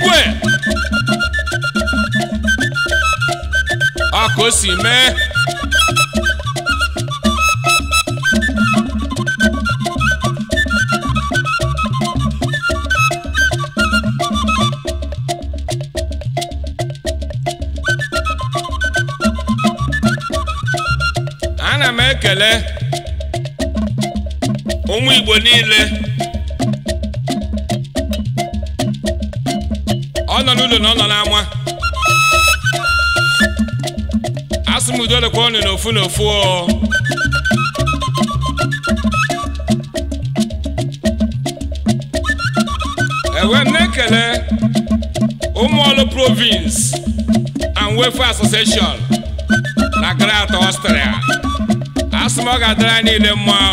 igwe aka o si mee ana m ekele ụmụ igbo niile asụmudo na ụlọ n'ama asụmudo lekwa ọnụ n'ofu n'ofu ewe m na-ekele ụmụọlụ province and welfare association na Greater Austria asị m ọ ga-adịrị niile mma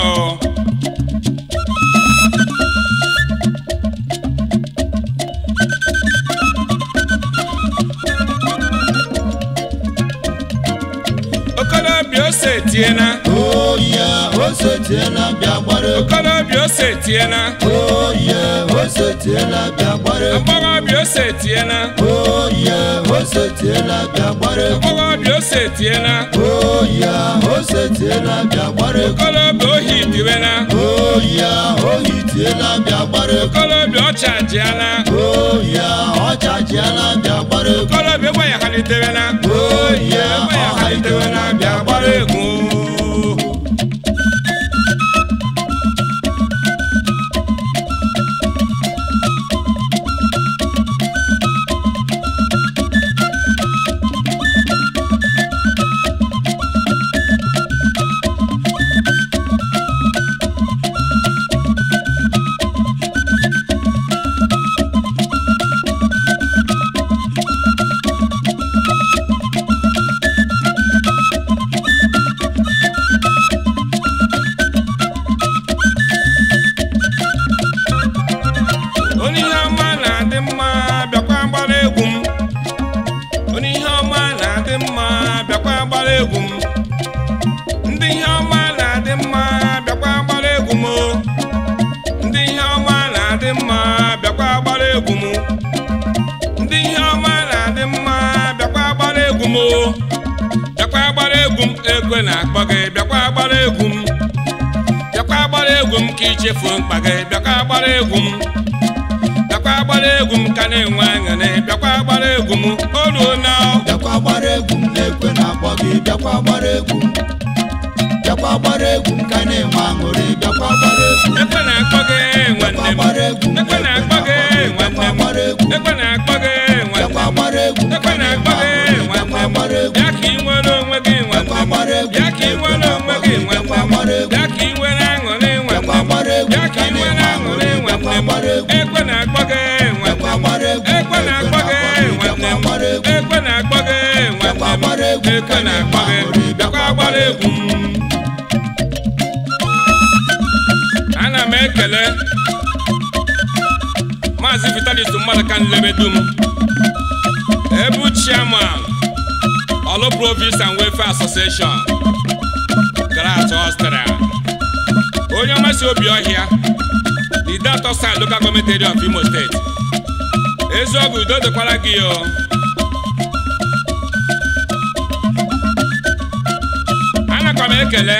tiɛ na. Oye o se tiɛ la bi a gbɔre. Abɔgɔ bi o se tiɛ na. Oye o se tiɛ la bi a gbɔre. Abɔgɔ bi o se tiɛ na. Oye o se tiɛ la bi a gbɔre. Okolo bi o hi dibe na. Oye o hi tiɛ la bi a gbɔre. Okolo bi o tsa diɛ na. Oye o tsa diɛ la bi a gbɔre. Okolo bi o wɛ yakali tebe na. Oye o wɛ yakali tebe na bi a gbɔre egwu m ndị ihe ọma na-adị mma bịakwa gbara egwu m ndị ihe ọma na-adị mma bịakwa gbara egwu m ndị ihe ọma na-adị mma bịakwa gbara egwu m bịakwa gbara egwu m ego na-akpọ gị bịakwa gbara egwu m bịakwa gbara egwu m ka ichefuo mkpa gị bịakwa gbara egwu m bịakwa gbara egwu m ka na-enwe aṅụrị bịakwa gbara egwu m o na bịakwa gbara egwu m gị bịakwa gbara egwu bịakwa gbara egwu nka na-enwe aṅụrị bịakwa gbara egwu bịakwa gbara egwu bịakwa gbara egwu egwu ka na-akpa gị bịakwa gbara egwu ana m ekele maazị vitalis mmadụ ka nlebedum ebu chairman Olu Province and Welfare Association Grat Austria onye ọmasị obi ọhịa the dat osan local government area of Imo State eziogwu udo dịkwara gị o aka m ekele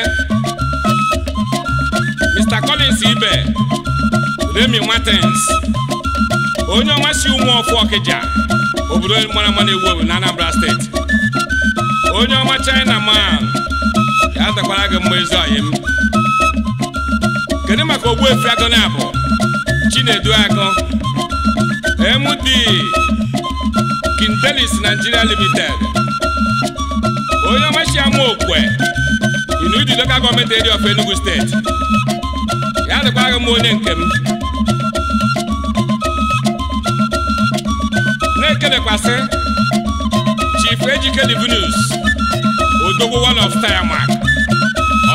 Mr. Collins Ibe Remi Martins onye ọma si ụmụ ọfụ Ọkịja obodo mara mma ewu ewu na Anambra steeti onye ọma China man ya takwara gị mma ezi ọyị m kedu maka Ogbuefi Agụnabụ Chinedu Agụ MD Kintelis Nigeria Limited onye ọma si ama okwe Inuidi local gọọmenti area of Enugu steeti ya dịkwaghị m onye nke m na-ekelekwasị Chief Ejike venus odogwu one of Tiamak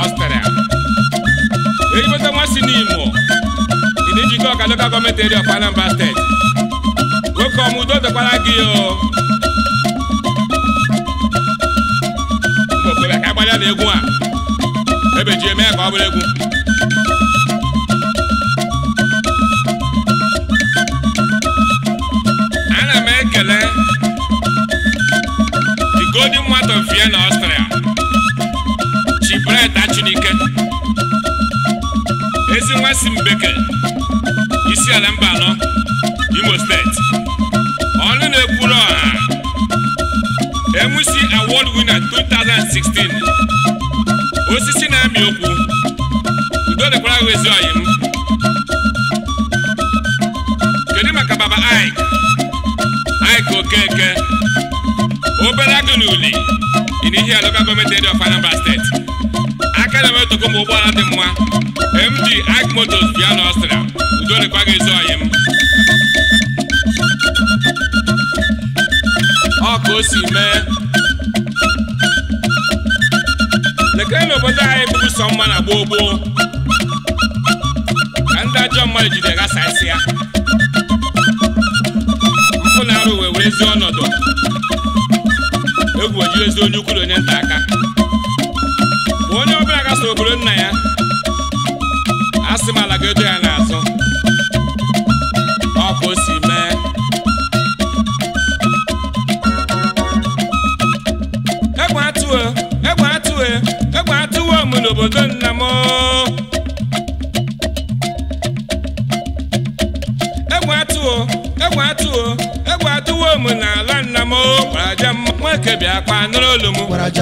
Ọstrịa eribota nwa si n'Imo Idijike Ọka local gọọmenti area of Anambra steeti nwoke ọmụdo dịkwara gị o ọmọ abúlẹ́gun. ana m ekele the golden mart of Vienna Austria chibreta Chinike ezi nwa si mbeke isi ala mba anọ Imo steeti ọnụ na-ekwuru ọha MC award winner 2016 osisi na-amị okwu we so ayem kedu maka baba aik aik okeke obere agụ n'uli dị n'ihi ala local gọọmenti edi of anambra steeti aka na metoko ma ụgbọala dị mma md aik motos bịa na ọstria udo dịkwa gị so ayem ọ ka o si mee lekere na anyị bụrụ sọ mma na gboo gboo ajọ mmadụ jide ghasasị ya mpụ na-arụ wee were ezi ọnọdụ egwu ojiri ezi onye ukwuru onye nta aka bụ onye ọbịa gasa obodo nna ya asị m ala ga-edo ya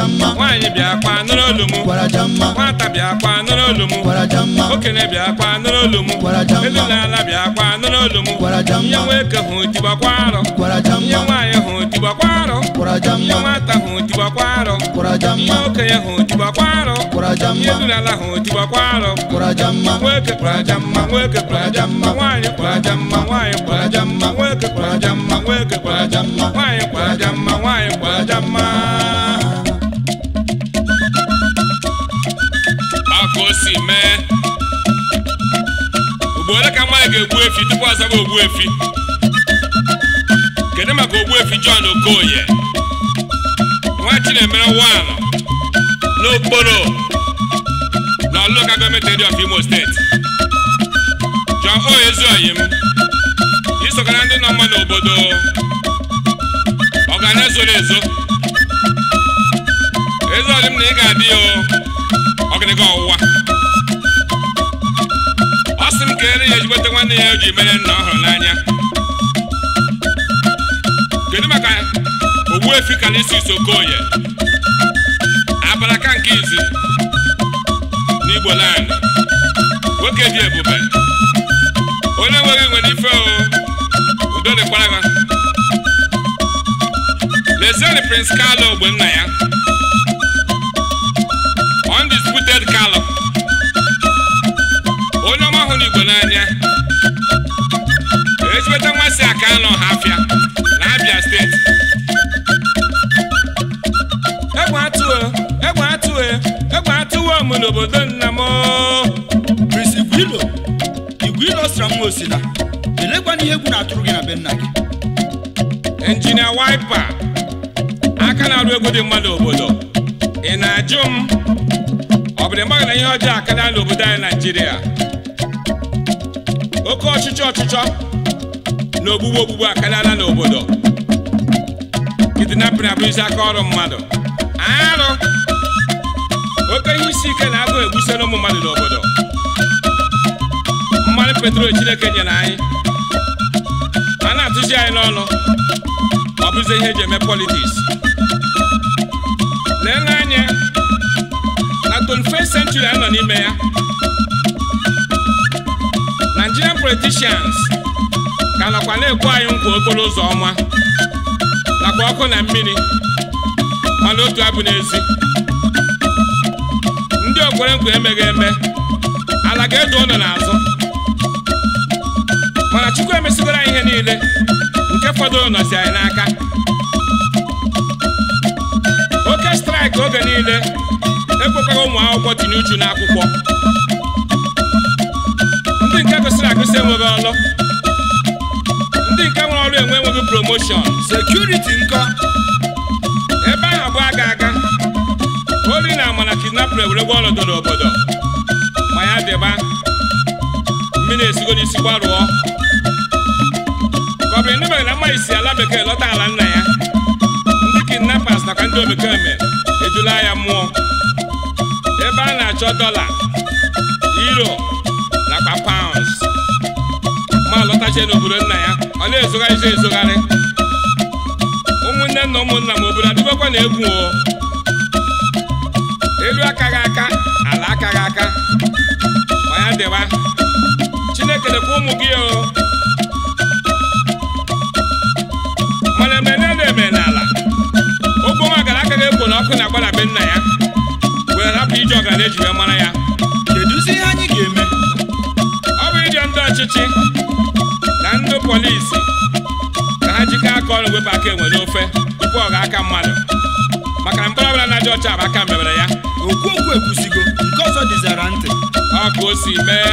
nwaanyị bịa akpa nụrụ olu m nwata bịa akpa nụrụ olu m okenye bịa akpa nụrụ olu m elu na ala bịa akpa nụrụ olu m nye nwoke hụ tigbakwa arọ nye nwaanyị hụ tigbakwa arọ nye nwata hụ tigbakwa arọ nye okenye hụ tigbakwa arọ nye elu na ala hụ tigbakwa arọ nwoke kwarajamma nwoke kwarajamma nwaanyị kwarajamma nwaanyị kwarajamma nwoke kwarajamma nwoke kwarajamma nwaanyị kwarajamma nwaanyị kwarajamma si mee ugbo ole ka nwaanyị ga-egbu efi tupu ọ zaba ogbu efi kedu maka ogbu efi John Okoye nwa Chinemere wan n'okporo na local government area of Imo steeti John m, isokara ndị nọ mma n'obodo ọganizu ezo ezo ọdịm na ị ga-adị ya ọgịnịga ọwụwa keere ya ezigbote nwanne ya o ji mere nna ọ n'anya kedu maka Ogbuefi Calixtus Okoye abalaka nke izi n'Igbo land nwoke dị ebube onye nweghị nwere ife o udo dịkwara ha lezieni Prince Carlo nna ya m n'obodo nna m bisi gwilo igwe ilo sara m osila elekwana ihe egwu na-atụrụ gị na be nna gị injinia waipa aka na-arụ egwu dị mma n'obodo ị na-ajụ m ọ bụ mmadụ na ihe ọjọọ na n'obodo anyị naijiria oke ọchịchọ ọchịchọ na ogbugbu ogbugbu akarịala n'obodo kidnapping abụrụzi aka ọrụ mmadụ arụ oke ihe isi ike na agụ egbusila ụmụ mmadụ n'obodo mmanụ petrol chineke nyere anyị a na-atụzi anyị n'ọnụ ọ bụzi ihe eji eme politiks lee n'anya na 21st a nọ n'ime ya Nigerian politicians ka nọkwa na-ekwu anyị nkwa okporo ụzọ ọma nakwa ọkụ na mmiri mana otu abụ n'ezi kwere nkwa emeghị eme ala ga edu ọnụ n'azụ mana Chukwu emesigoro anyị ihe niile nke fọdụrụ nọzi anyị n'aka oke straịkị oge niile ekwekwaghị ụmụ akwụkwọ tinye uchu n'akwụkwọ ndị nke kwesịrị agụsị enweghị ọlụ ndị nke nwere ọrụ enwe enweghị promoshọn sekuriti nkọ werekwa ọlọdọ n'obodo ma ya dịba mmiri esigo n'isi gbarụọ ka ọ bụrụ ndị e mere na mmanya si ala bekee lọta ala nna ya ndị kidnappers nakwa ndị obekee mere ejula ya mmụọ ebe a na-achọ dọla euro nakwa paụnds ma lọtachie n'obodo nna ya ọ na-ezogharịzi ezogharị ụmụnne na ụmụnna m obodo adịbakwa na egwu o elu aka aka gị aka ma ya dịwa Chineke dịkwa ụmụ gị o mana emene na-eme n'ala ala nwa gara aka ga-ekwo na ọkụ na-agbada be nna ya wee rapụ ije ọgara eji wee mara ya kedụzi ihe anyị ga-eme ọ bụ ije ndị ọchịchị na ndị polisi ka ha jikọ aka ọrụ wepụ aka enwere ofe tupu ọ ga aka mmadụ maka na ọbụla na-aja ọcha bụ aka mebere ya okwu ekwusigo nke ọzọ dịzara ntị aka o si mee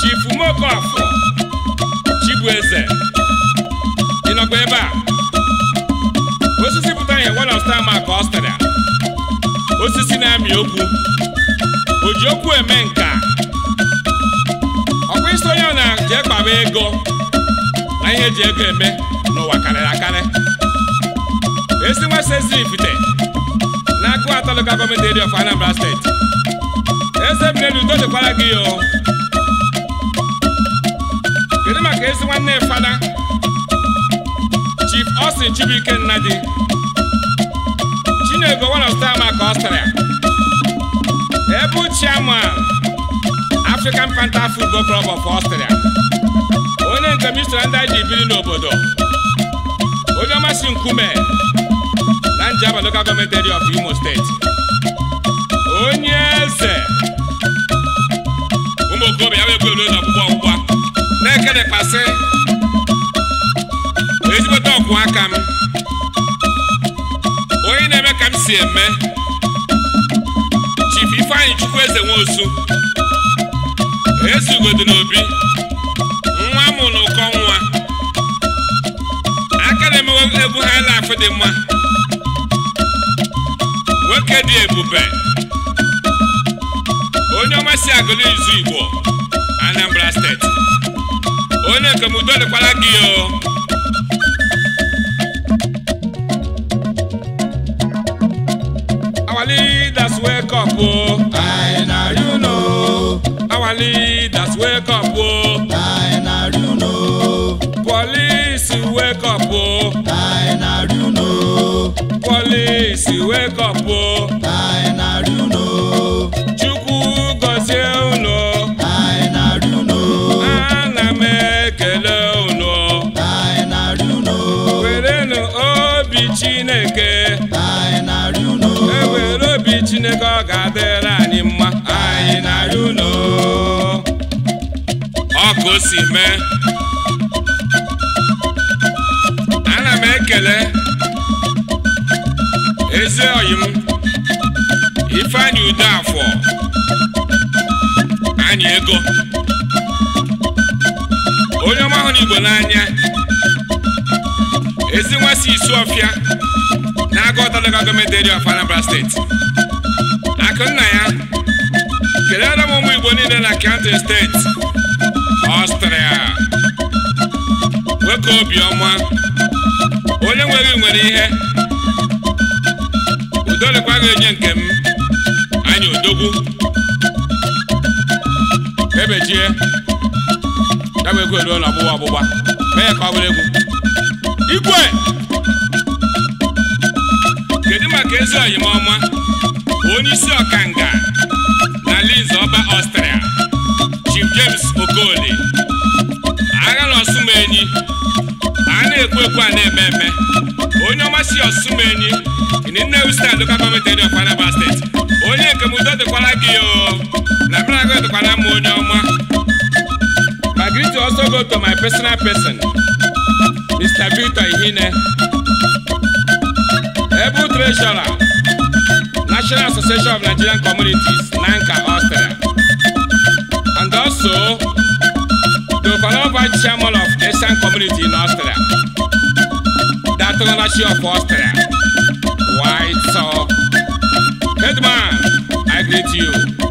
chifu Mokafọ Chibueze ị nọkwa ebe a osisi pụta ihe welọsta ma ka osisi na-amị okwu o ji okwu eme nka ọkwa isi onye na jee kpaba ego na ihe eji ego eme n'ụwa karịrị akarị esi nwasezi ibute n'aka atọ local government area of Anambra steeti eze mmiri udo dịkwara gị o kedu maka ezi nwanne fada chief Austin Chibuike Nnadi Chinego one of maka Australia ebu chairman African Panta Football Club of Australia onye nke mistra ndị ji biri n'obodo onye ọmasị nkume and Jaba Local Government Area of Imo State. Onyeze ụmụ okorobịa ya wee na ọkpụkpọ ọgwụgwa na-ekedekpasị ezigbote ọkwụ aka m onye na-eme ka si eme Chief Ifeanyị wosu. Ezi Nwosu ezugodo n'obi nwa mụ na ụkọ nwa aka na-emewe egwu ha na-afụ Okedi Ebube onye ọma si agụlụ izu Igbo Anambra steeti onye nke m dịkwara gị o our leaders wake up o I na you know our leaders wake up o I na you know police wake up o I na you know police wake up anyị na-arị unu chukwu gọzie unu na m ekele unu anyị na-arị unu chineke anyị e ọ ga-adịrị anyị mma anyị na ọkụ si mee ana m ekele ezi ọyị m ifeanyi udo afọ anyị ego onye ọma hụrụ igbo n'anya ezi nwa si ọfịa na-aga ọtalaga gọọmenti eri of Anambra steeti akụnna ya kelere m ụmụ igbo niile na Kanti steeti Ọstrịa nwoke obiọma onye nwere nwere ihe ndolekwa ga-enye nke m anyị odogwu ebechie ya bụ egwu eruo na ọgbụgba ọgbụgba mee ka ọ bụrụ egwu igwe kedu maka ezi oyim ọma onye isi ọkanga na linz ọba ọstrịa chief james okoli agha na ọsụmenyi a na-ekwu ekwu a na-eme eme Ngozi Osumeni ní Nnewi State local government area of Anambra State onye nke mudo dịkwara gị o na mmeragụ dịkwara m onye ọma my greeting also go to my personal person Mr. Victor Ihine able treasurer National Association of Nigerian Communities Nanka Austria and also the Valor Vice Chairman of Asian Community in Austria Patronaci of Austria, White Sock. Headman, I greet you.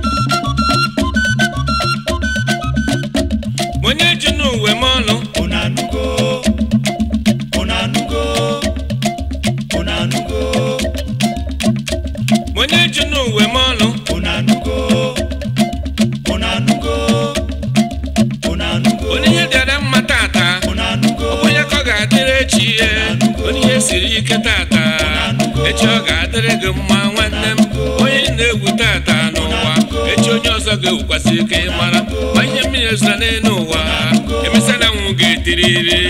oge wụkwasị ike mara ma ihe mmiri ezụta n'elu ụwa emesịala nwụ ga-etiriri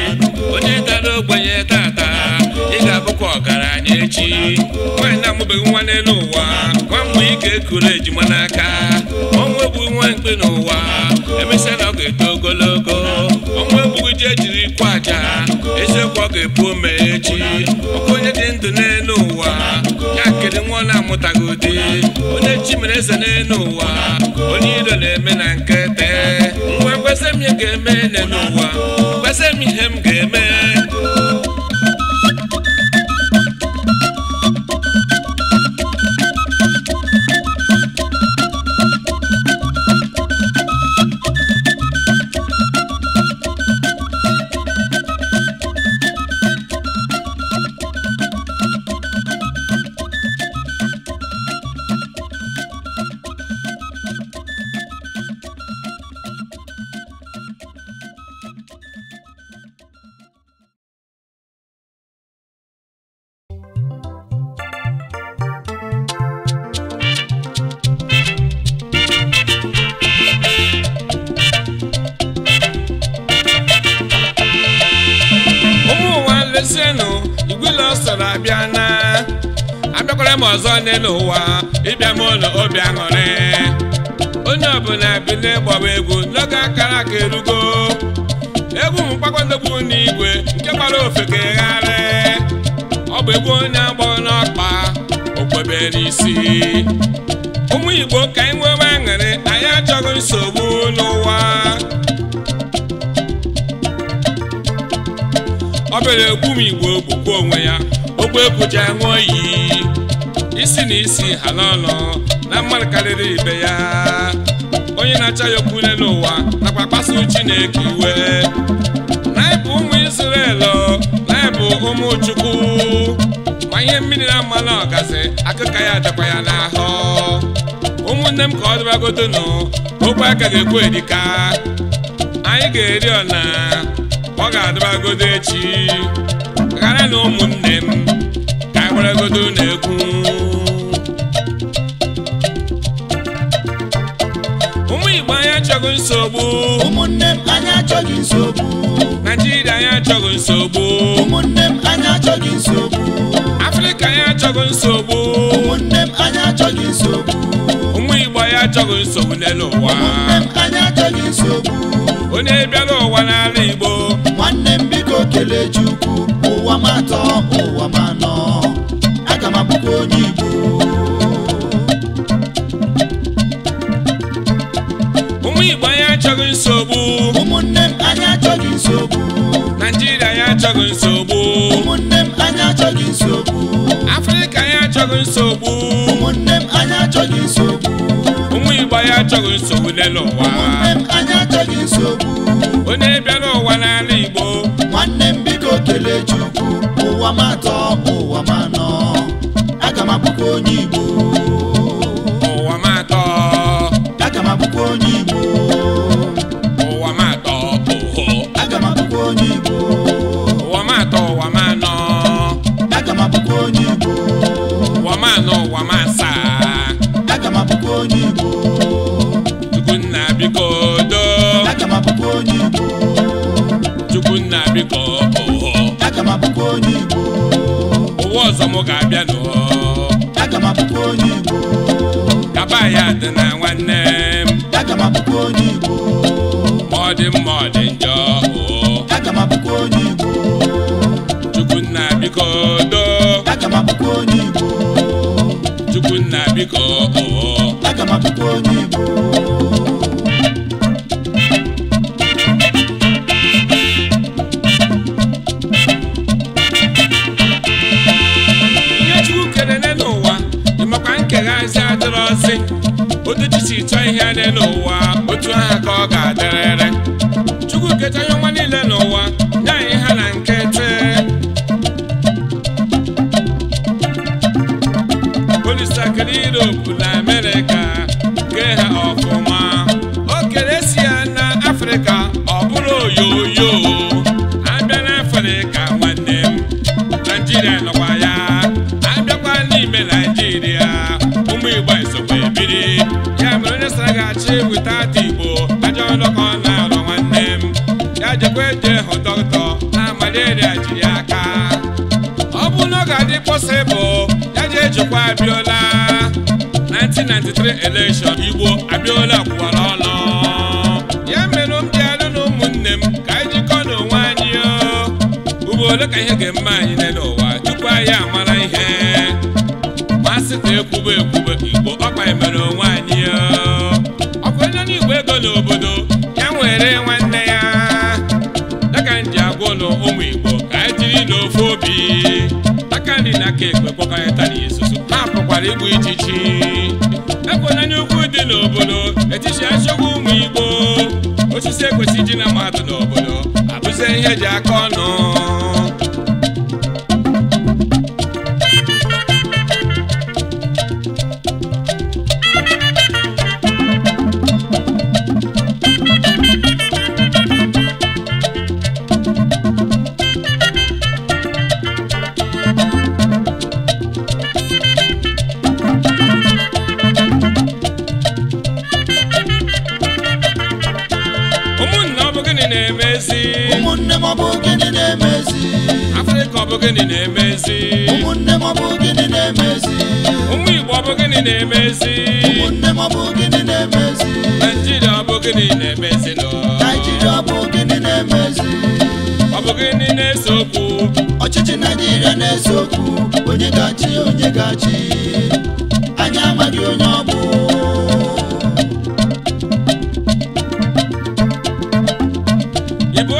onye dara ogbenye tata ị ga-abụkwa ọgaranya echi nwaanyị na-amụbeghị nwa n'elu ụwa nwa mgbe ike kụrụ ejima n'aka ọnwụ egbughi nwa mkpi n'ụwa emesịala ọ ga-eto ogologo ọnwụ egbughị ji ejiri kwụ aja eziokwu ọ ga-epu ome echi ọkụ onye dị ndụ n'elu ụwa ya kere nwa ọ na-amụtaghị chimere eze n'elu ụwa onye iro na-eme na nkete nwa kwesị m ga-eme n'elu ụwa kwesị m ihe m ọ bịara egbu m igbo ogbukwu onwe ya ogbe ekwuja ṅụọ oyi. isi na isi ha n'ọnụ na mmadụ karịrị ibe ya onye na-acha ya okwu n'ụwa nakwa kpasu chineke iwe anyị bụ ụmụ Izrel anyị bụ ụmụ Chukwu ma ihe mmiri na mmanụ ọgazi akụka ya dịkwa ya n'ahụ ụmụnne m ka ọ dịbagodonu okwu aka ga-ekwu edika anyị ga-eri ọna ọ ga-adịbagodo echi ghara na ụmụnne m ka agbaragodo e na-ekwu ụmụ Igbo anyị achọghị nsogbu ụmụnne m anyị achọghị nsogbu Naijiria anyị achọghị nsogbu ụmụnne m anyị achọghị nsogbu Afrịka anyị achọghị nsogbu ụmụnne m anyị achọghị nsogbu ụmụ Igbo anyị achọghị nsogbu n'elu ụwa ụmụnne m anyị achọghị nsogbu Kelechukwu ụwa ma atọ ụwa ma anọ aga m abụkwa onye Igbo ụmụ Igbo anyị achọghị nsogbu ụmụnne m anyị achọghị nsogbu Naịjirịa anyị achọghị nsogbu ụmụnne m anyị achọghị nsogbu Afrịka anyị achọghị nsogbu ụmụnne m anyị achọghị nsogbu ụmụ Igbo anyị achọghị nsogbu n'elu ụwa ụmụnne m anyị achọghị nsogbu onye ụwa ma atọ ụwa ma anọ aga m abụkwa onye Igbo onde vou.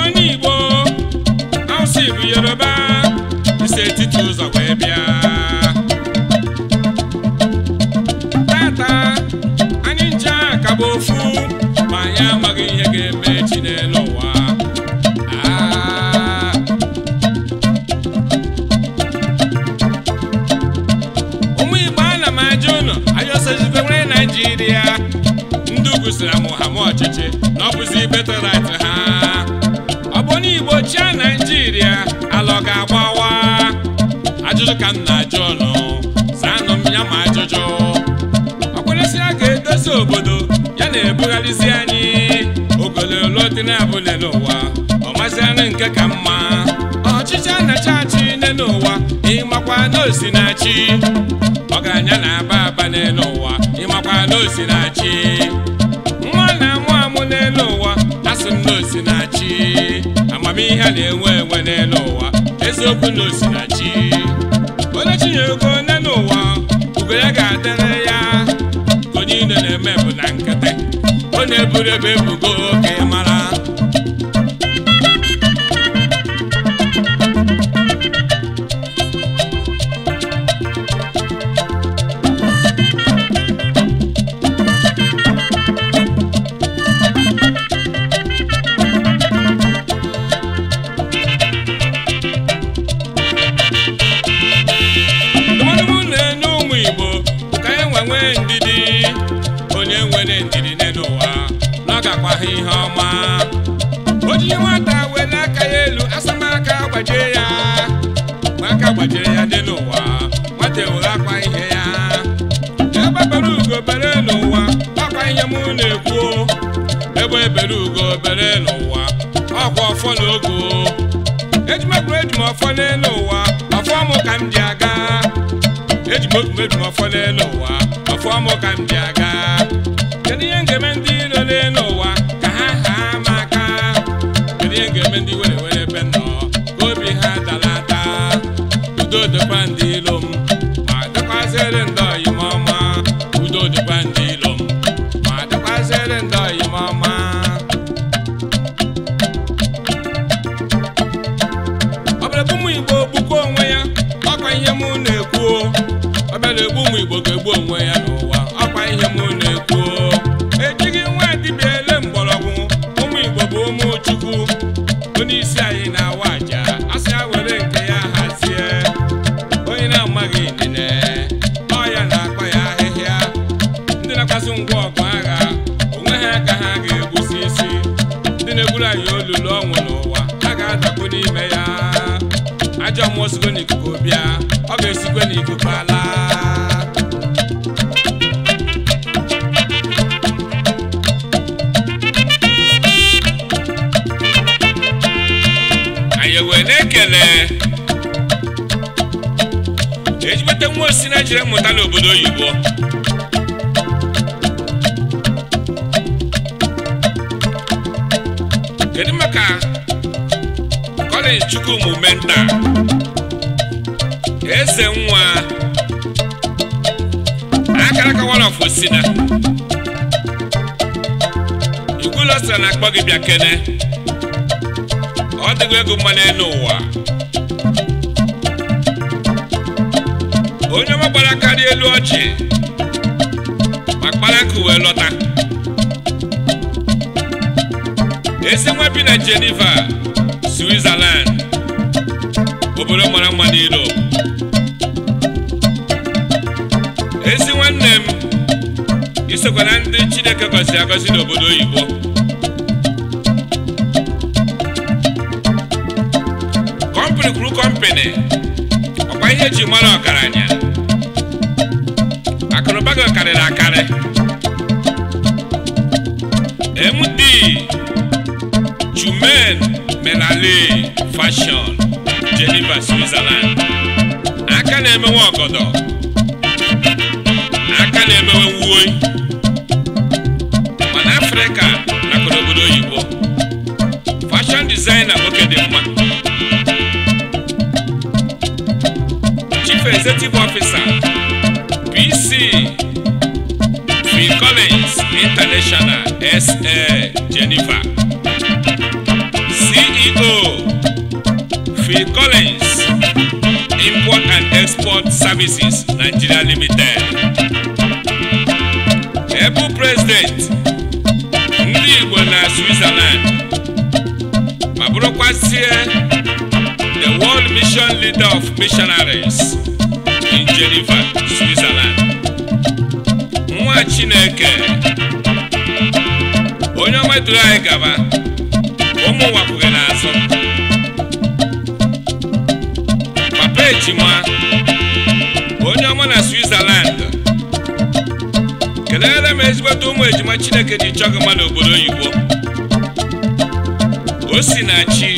onye igbo awụsa bụ yoruba isi etiti ụzọ wee bịa tata anyị nje ka bụ ofu ma anyị amaghị ihe ga-eme echi n'elu ụwa ụmụ igbo ana m ajụ ụnụ ayọsozibewere naijiria ndị ugwu sịra m ọchịchị na ọ bụzi betara ka m na-ajụ ụlọ zanụ m ya ma ajụjụ ọkpụrụsịa ga-edozi obodo ya na-ebugharịzi anyị ogololo dị na-abụle n'ụwa ọ mazianụ nke ka mma ọchịchị a na-achị achị nne n'ụwa ịmakwa n'osi na aba aba n'elu ụwa ịmakwa n'osi na nwa na-amụ amụ n'elu ụwa asị m n'osi na-achị amamihe a na-enwe enwe n'elu ụwa eziokwu n'osi onye ego nne n'ụwa ugo ya ga-adịrị ya onye niile na-eme bụ na nkịtị ọ na-eburu ebe ebugo oke mara m afọ n'elu ụwa afọ mụ ka m bịa P. Collins Import and Export Services Nigeria Limited ebu president ndị Igbo na Switzerland ma bụrụkwazie the world mission leader of missionaries in Geneva, Switzerland nwa Chineke onye ọma anyị gaba ụmụ n'azụ ejima onye ọma na Switzerland kelere m ezigbote ụmụ ejima Chineke ji chọgị gị obodo n'obodo oyibo Osinachi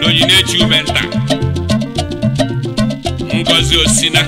na ume Umenta Ngozi Osina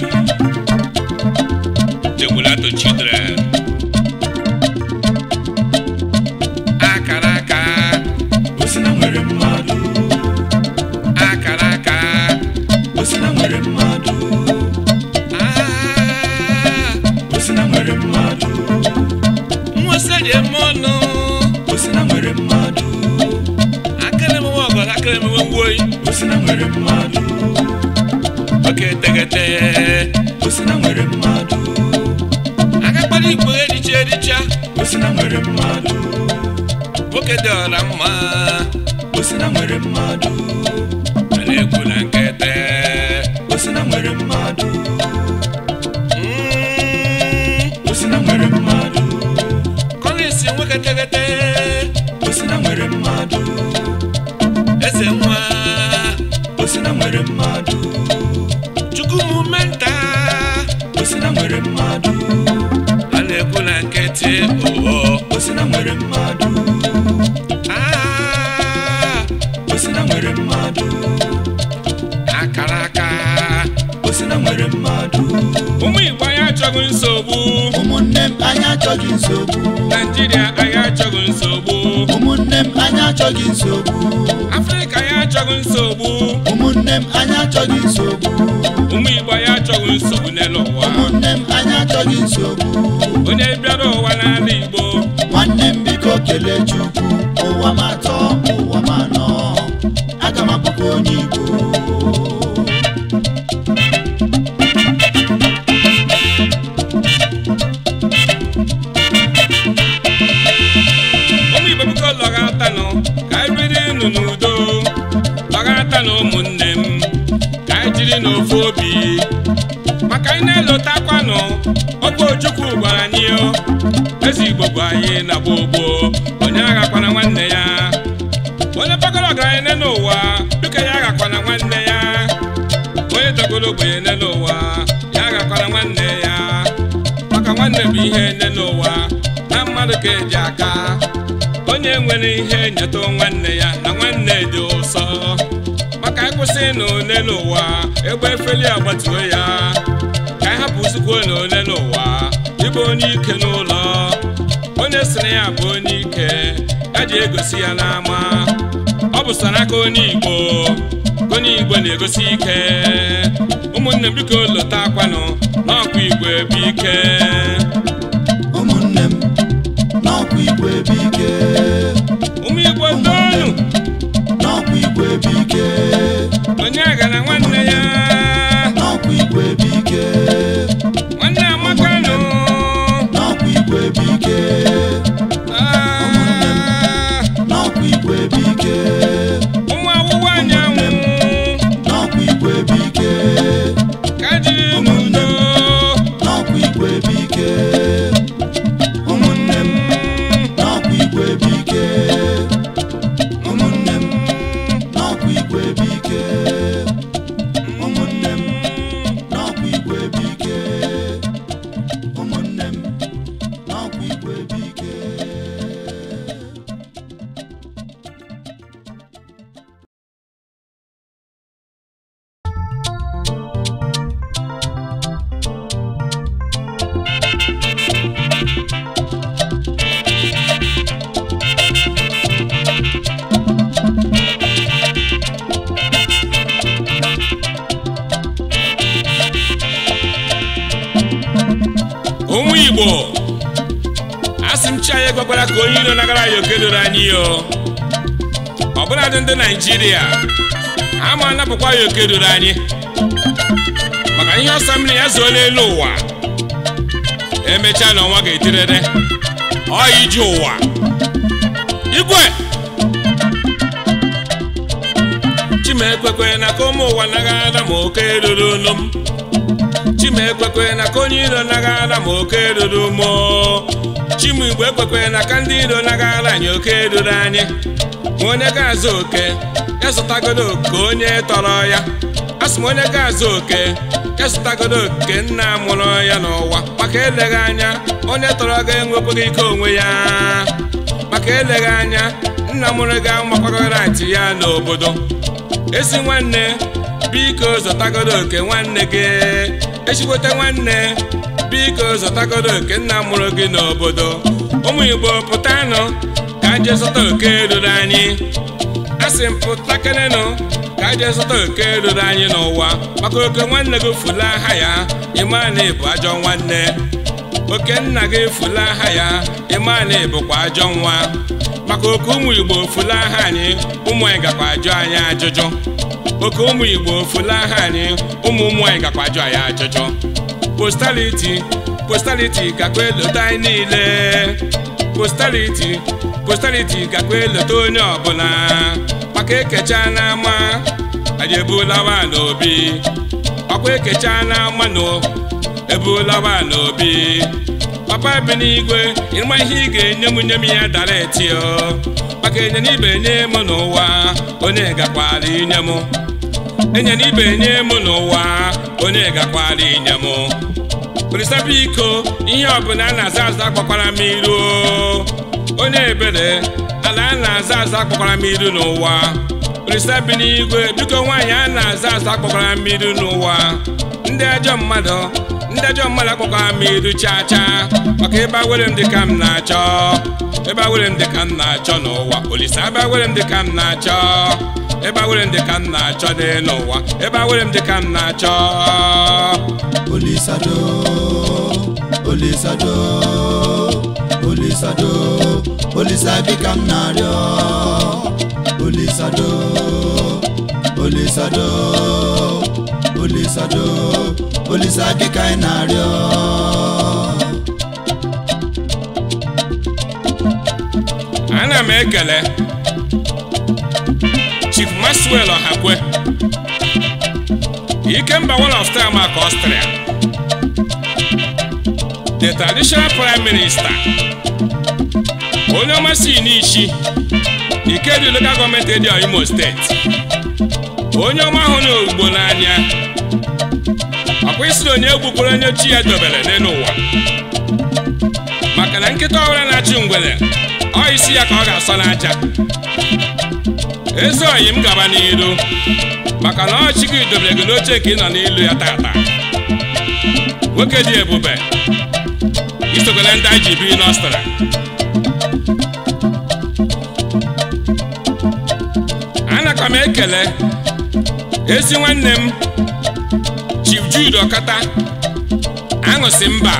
achọghị nsogbu afrịka achọghị nsogbu ụmụnne m anyị achọghị nsogbu ụmụ igbo ya achọghị nsogbu n'elu ụwa ụmụnne m anyị achọghị nsogbu onye bịara ụwa n'ala igbo nwanne m biko kele chukwu ụwa m atọ ụwa m anọ aga m akpọkọ onye igbo gị na gbogbo onye aghakwana nwanne ya onye pagoro ọgaranya nne n'ụwa dịka ya aghakwana nwanne ya onye dọgoro ogbenye nne n'ụwa ya aghakwana nwanne ya maka nwanne bụ ihe nne n'ụwa na mmadụ ka eji aka onye nwere ihe nyeta nwanne ya na nwanne dị ụsọ maka ịkwụsị na ole n'ụwa egbe efeli agbatuo ya ka anyị hapụ usikwu na ole n'ụwa ịbụ onye ike n'ụlọ sị na ya bụ onye ike ya ji egosi ya n'ama ọ bụ saraka onye igbo onye igbo na-egosi ike ụmụnne m biko lota akwanụ n'ọkwa igbo ebe ike mmiri o ndị naijiria ama anapụkwa ya oke ruru anyị maka ihe ọsọ mmiri ya zuo n'elu ụwa emechaa na ọnwa ga-etirere ọya ji ụwa igwe chimekwekwe na ka ụmụ ụwa naghị oke ruru nụ m na ka onye iro naghị ma oke ruru moo Chimigbo ekwekwere na ka ndị iro nagara anyị oke eruru anyị ma onye ga-azụ oke ya oke onye tọrọ ya asị m onye ga-azụ oke ya oke nna mụrụ ya n'ụwa maka eleghị anya onye tọrọ ga enwekwaghị ike onwe ya maka eleghị anya nna mụrụ ga amakwagoghị ati ya n'obodo esi nwanne biko zụtagodo oke nwanne gị echikwote nwanne biko zụtagodo nke nna mụrụ gị n'obodo ụmụ igbo pụtanụ ka je zụta oke ruru anyị asị m pụtakenenụ ka je zụta oke ruru anyị n'ụwa maka oke nwanne gị fula aha ya ịmana ịbụ ajọ nwanne oke nna gị fula aha ya ịmana bụkwa ajọ nwa maka oke ụmụ igbo fula aha anyị ụmụ anyị gakwa ajụ anyị ajụjụ oke ụmụ igbo fula aha anyị ụmụ ụmụ anyị gakwa ajụ anyị ajụjụ postaliti postaliti gakwa elota anyị niile postaliti postaliti gakwa elota onye ọbụla maka ekecha ama anyị ebulawa n'obi ọkwa ekecha n'ama nụ ebulawa n'obi papa ebe n'igwe ịma ihe ị ga-enye m nye m ya dareti maka enye ibe nye m n'ụwa onye gakwara inye m enye ibe nye m n'ụwa onye gakwara inye m bụrịsa iko ihe ọbụla a na-aza aza gbakwara m iru onye ebere ala a na-aza aza gbakwara m iru n'ụwa bụrịsa bi n'igwe biko nwaanyị a na-aza aza gbakwara m iru n'ụwa ndị ajọ mmadụ ndị ajọ mmadụ akpọkwara m iru chaa chaa maka ebe awere m dịka m na-achọ ebe awere m dịka m na-achọ n'ụwa olise abịa were m dịka m na-achọ ebe awere m dịka m na-achọ n'elu ụwa ebe awere m dịka m na-achọ Olisado Olisa dịka m na-arịọ Olisado Olisado Olisado Olisa dịka ị na-arịọ ana m ekele Chief Maxwell Ọhakwe Ikemba one of time aka Austria the traditional prime minister onye si n'ichi Ike dị local government dị Imo steeti onye ọma ahụ na ugbo n'anya ọkwa isi na onye egbukwere onye chi ya dobere n'elu ụwa maka na nkịta ọbụla na-achị ngwere ọ isi ya ka ọ ga-asọ n'aja ezi oyi m gaba n'ilu maka na ọchị gị dobere gị n'oche ka ị nọ n'ilu ya tata nwoke dị ebube isogole ndị ji biri n'ọstara anaka m ekele ezi nwanne m Chief Jude Okata aṅụsị mba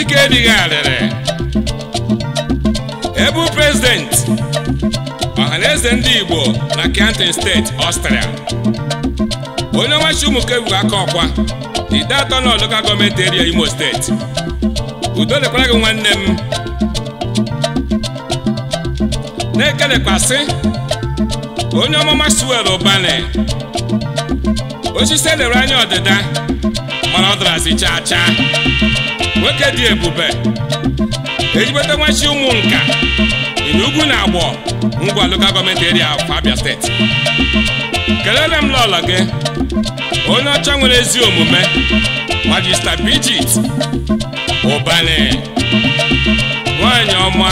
ike dịghị arịrị ebu prezidenti ọhaneze ndị Igbo na Kenten steeti Ọstrịa onye nwachi ụmụkeburu aka ọkwa ide atọ na local gọọmenti eria Imo steeti udo dịkwara gị nwanne m na-ekelekwasị onye ọmụma suwel ụbane osisi elere anya ọdịda mana ọ darazi chaa cha. nwoke dị ebube ejigbata nwachi ụmụ nka ịna ugwu na agbọ Ngwa local government area of Abia steeti kelere m lọla gị onye ọcha nwere ezi omume Majista Bridget Ubani nwanyị ọma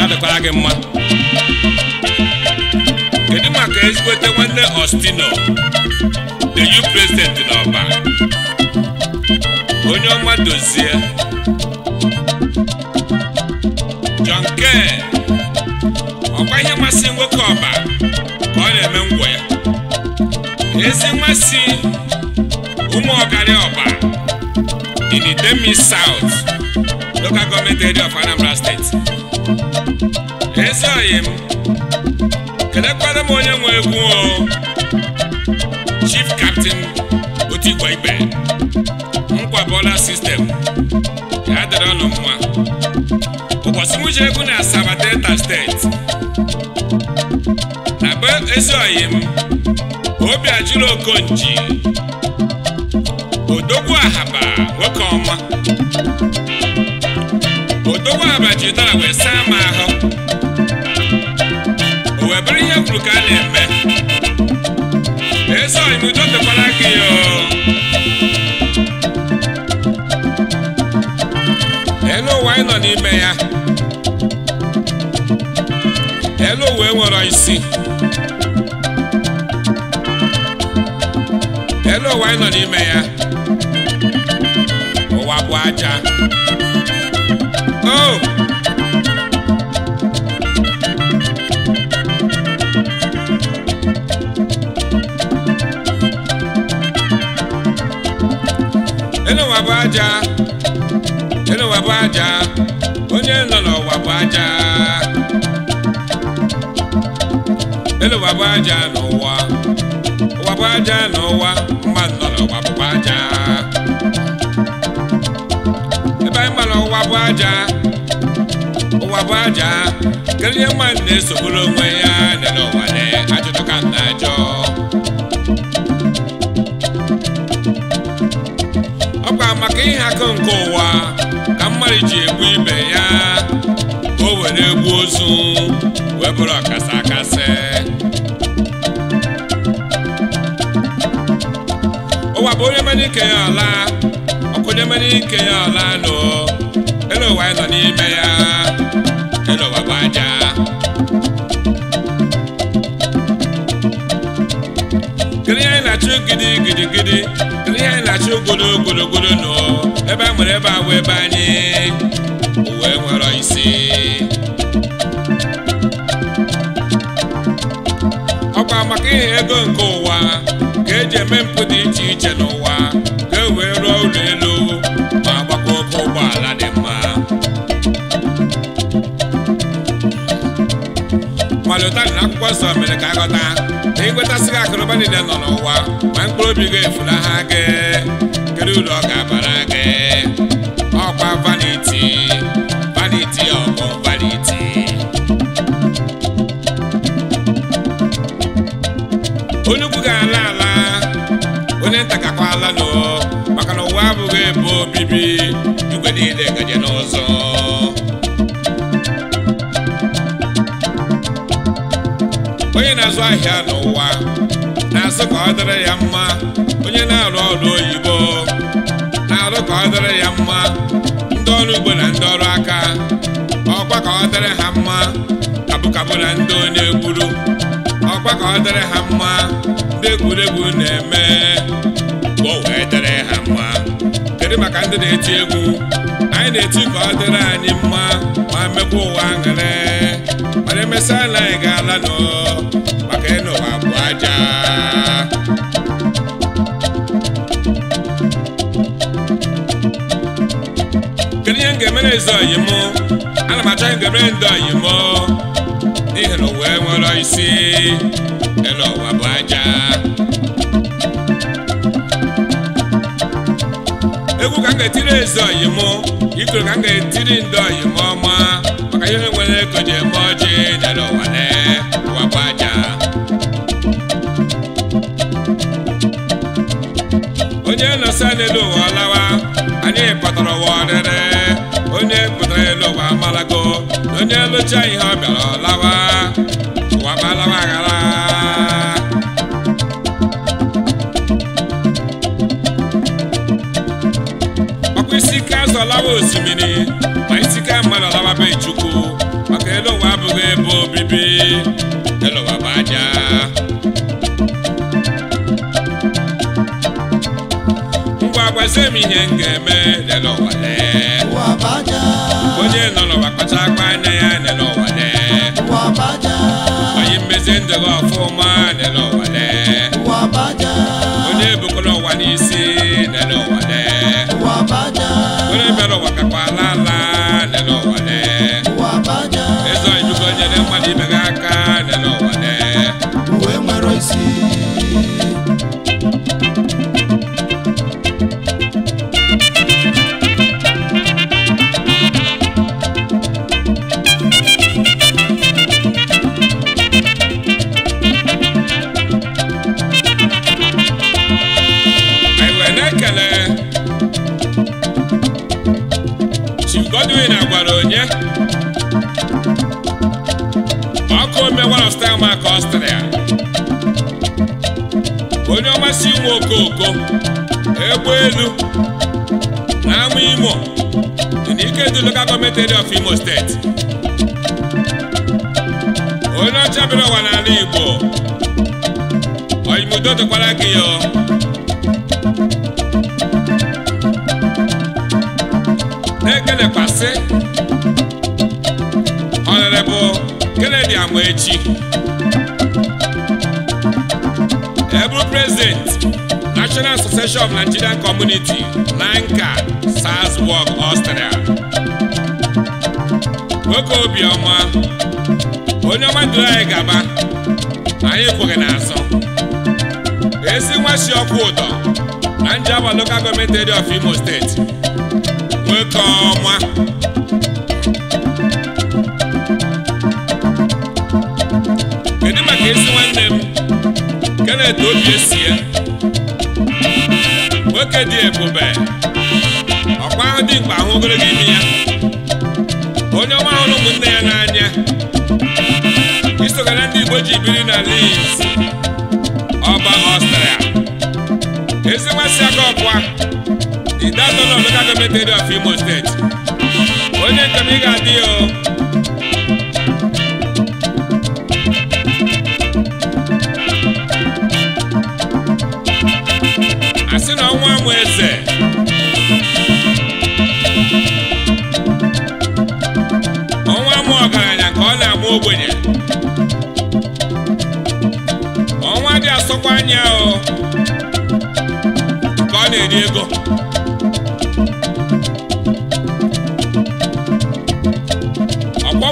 ya dịkwara gị mma kedu maka ezigbote nwanne Ostino the u president n'Ọba onye ọma dozie nwoke ọba ka ọ na-eme ngwọ ya ezi mmasị ụmụ ọgarị ọba in Idemili South local government area of Anambra State ezi oyi m kelekwara m onye nwe egwu o Chief Captain Otigwa Igbe nkwabọla sistem ya dịrị ọnụ mma ụbọchị m ji egwu na Asaba Delta State akpa Ezuoyim Obiajulu Okonji Odogwu Ahaba nwoke ọma Odogwu Ahaba wee saa m ahụ o ihe kwuru ka a na-eme Ezuoyim udo dịkwara gị elu ụwa anyị nọ n'ime ya elu ụwa enwere isi obodo ụwa anyị nọ n'ime ya ụwa bụ aja o enu ụwa bụ aja enu bụ aja onye nọ n'ụwa bụ aja enu bụ aja n'ụwa ọgwụ aja n'ụwa mmadụ nọ n'ụwa bụkwa aja ebe anyị mara ụwa bụ aja ụwa bụ aja kelie mmadụ na-esogburu onwe ya nele ụwa na ajụtụka na ajọ ọkwa maka ihe akụ nke ụwa ka mmadụ ji egbu ibe ya o were egbu ozu wee bụrụ ọkasa akasị bụ onye mere ike ya ala ọkụ onye mere ike ya nụ anyị nọ n'ime ya ele ụwa bụ aja kedu ihe anyị na-achụ gidi gidi gidi kedu ihe anyị na-achụ ogolo nụ ebe a nwere ebe a ebe anyị uwe nwere isi ọkwa maka ihe ego nke ụwa ka eji eme mpụ iche n'ụwa ka e wee rụọ ụlọ elu ma gbakọ oke ụgbọala dị mma malụtari na akwụkwọ nsọ mere ka a ghọta na ịgwetasịghị akụrụba niile nọ n'ụwa ma mkpụrụ obi ga-efulaha gị kedu uru ọ ga-abara gị ọkwa vaniti anyị ntakakwalanụ maka na ụwa abụghị ebe obibi igwe niile gaje n'ụzọ onye na-azụ ahịa n'ụwa na asụ ka ọ dịrị ya mma onye na-arụ ọrụ oyibo na-arụ ka ọ dịrị ya mma ndị ọrụ ugbo na ndị ọrụ aka ọkwa ka ọ dịrị ha mma kabụkabụ na ndị onye gburu ọkwa ka ọ dịrị ha mma ndị egwuregwu na-eme o wee dere ha mma kedu maka ndị na-eti egwu anyị na-eti ka ọ dịrị anyị mma ma mekwa ụwa aṅụrị mana emesa na anyị ga-ala nọ maka ịna ụwa bụ aja kedu ihe m ga-emere ezi oyi m ana m acha ihe ndị oyi m n'ihi na ụwa enwere isi ịna ụwa bụ aja ka etiri ezo oyimo ikoro ka m ga-etiri ndị oyimo ọma maka ihe nwere ego ji eme ọjị dara ụwa lee ụwa bụ aja onye nọsa n'elu ụwa ọlawa anyị kpatara ụwa ọrịrị onye pụtara elu ụwa amalago na onye lụcha ihe ọ bịara ọlawa osimiri ma isi ka mmadụ alababeghị chukwu maka elu ụwa abụghị ebe obibi elu ụwa bụ aja ngwa gwazie m ihe m ga-eme lele ụwa lee onye nọ n'ụwa kpacha akpa anya ya lele onye mmezi ndụ gị ọfụma lele of Nigerian Community, Nanka, Salzburg, Austria. Nwoke obiọma onye ọma duru anyị gaba anyị kwụghị n'azụ esi nwa shi ọkụ ụtọ na Njaba Local Government Area of Imo State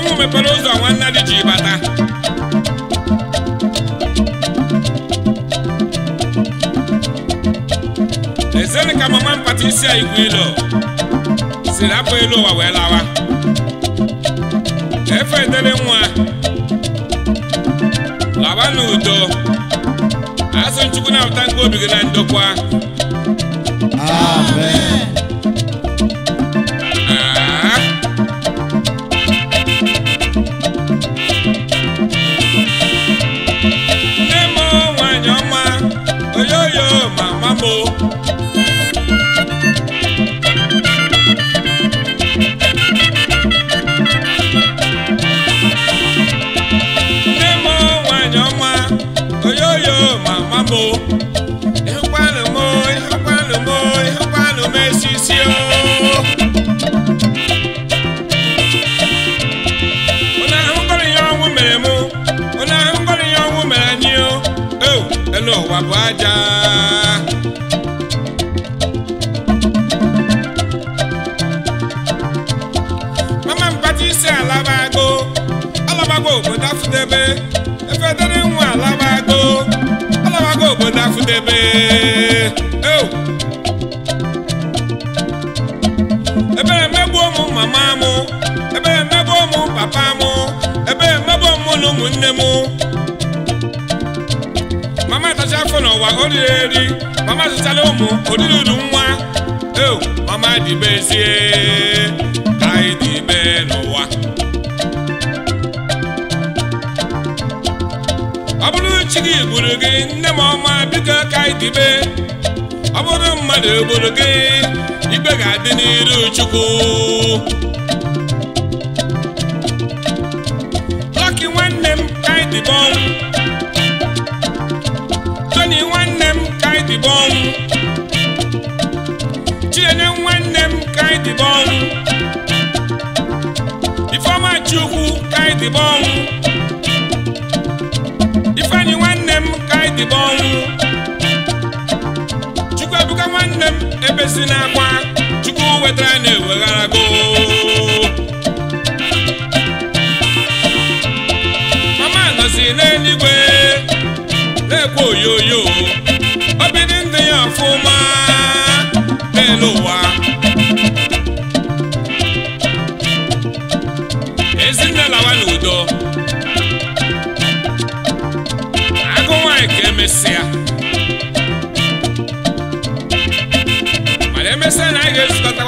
ụnụ mepere ụzọ nwa nnadi ji bata ezere ka mama mpata isi a igwe ilo siri apụ elu ụwa wee lawa efe edere nwa lawa n'udo asụ nchukwu na-apụta nke obi gị na ndokwa amen Chukwu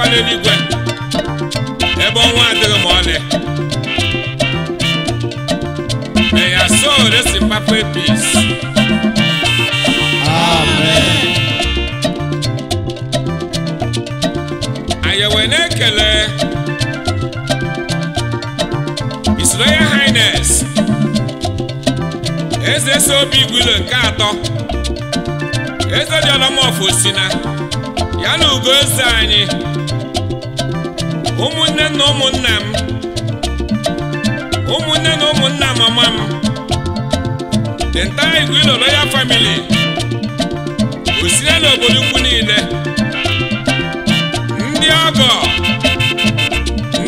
akwala eluigwe ebe ọnwa adịghị ma ọlị eya sol esi papa epis anyị na-ekele His Royal eze si obi igwilo nke atọ eze dị ọlọmọfụ si na ya na ugo eze anyị ụmụnne na ụmụnna m ụmụnne na ụmụnna mama m the entire Igwe Royal family osire n'obodo ukwu niile ndị ọgọ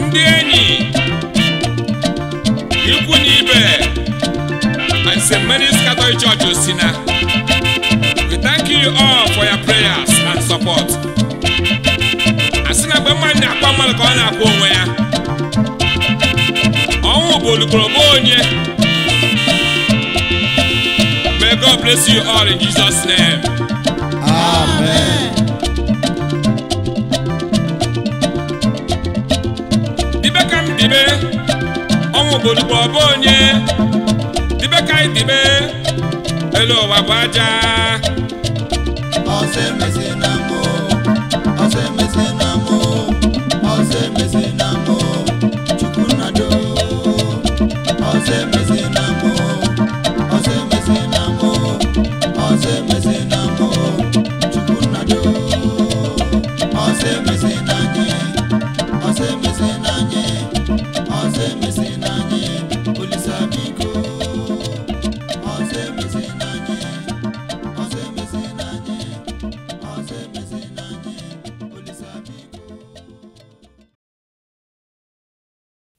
ndị enyi ikwu na ibe and St. Mary's Catholic Church Osina we thank you all for your prayers and support mmadụ na-akwa mmadụ ka ọ na-akwụ onwe ya ọnwụ bụ olukoroba onye may God bless you all in Jesus' name. Amen. dibe ka m dibe ọnwụ bụ olukoroba onye dibe ka anyị dibe elu ụwa bụ aja ọsọ busy.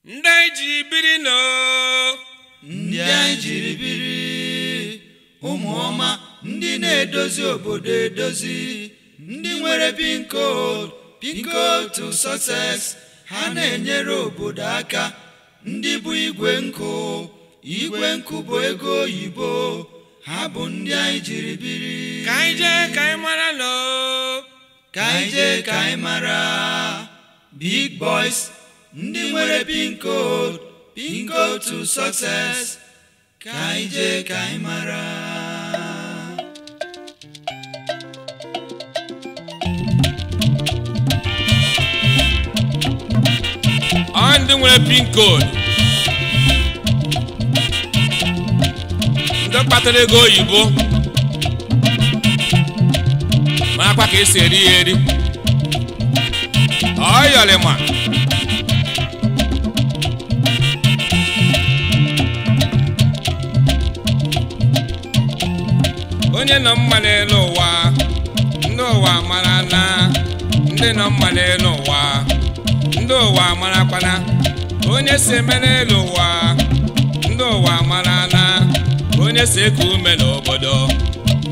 ndị anyị jiri biri ndị anyị jiri biri ụmụ ọma ndị na-edozi obodo edozi ndị nwere pin code pin code to success ha na-enyere obodo aka ndị bụ igwe nkụ igwe nkụ bụ ego oyibo ha bụ ndị anyị jiri biri ka anyị jee ka anyị mara ka anyị jee ka anyị mara big boys ndị nwere pin code pin code to sọkses ka anyị jee ka anyị mara ọ ndị nwere pin code ndị kpatara ego oyibo marakwa ka esi eri ya eri ọ yọrịma onye nọ mma n'elu ụwa ndị ụwa mara na ndị nọ mma n'elu ụwa ndị ụwa marakwana onye si eme n'elu ụwa ndị ụwa mara na onye si eku ume n'obodo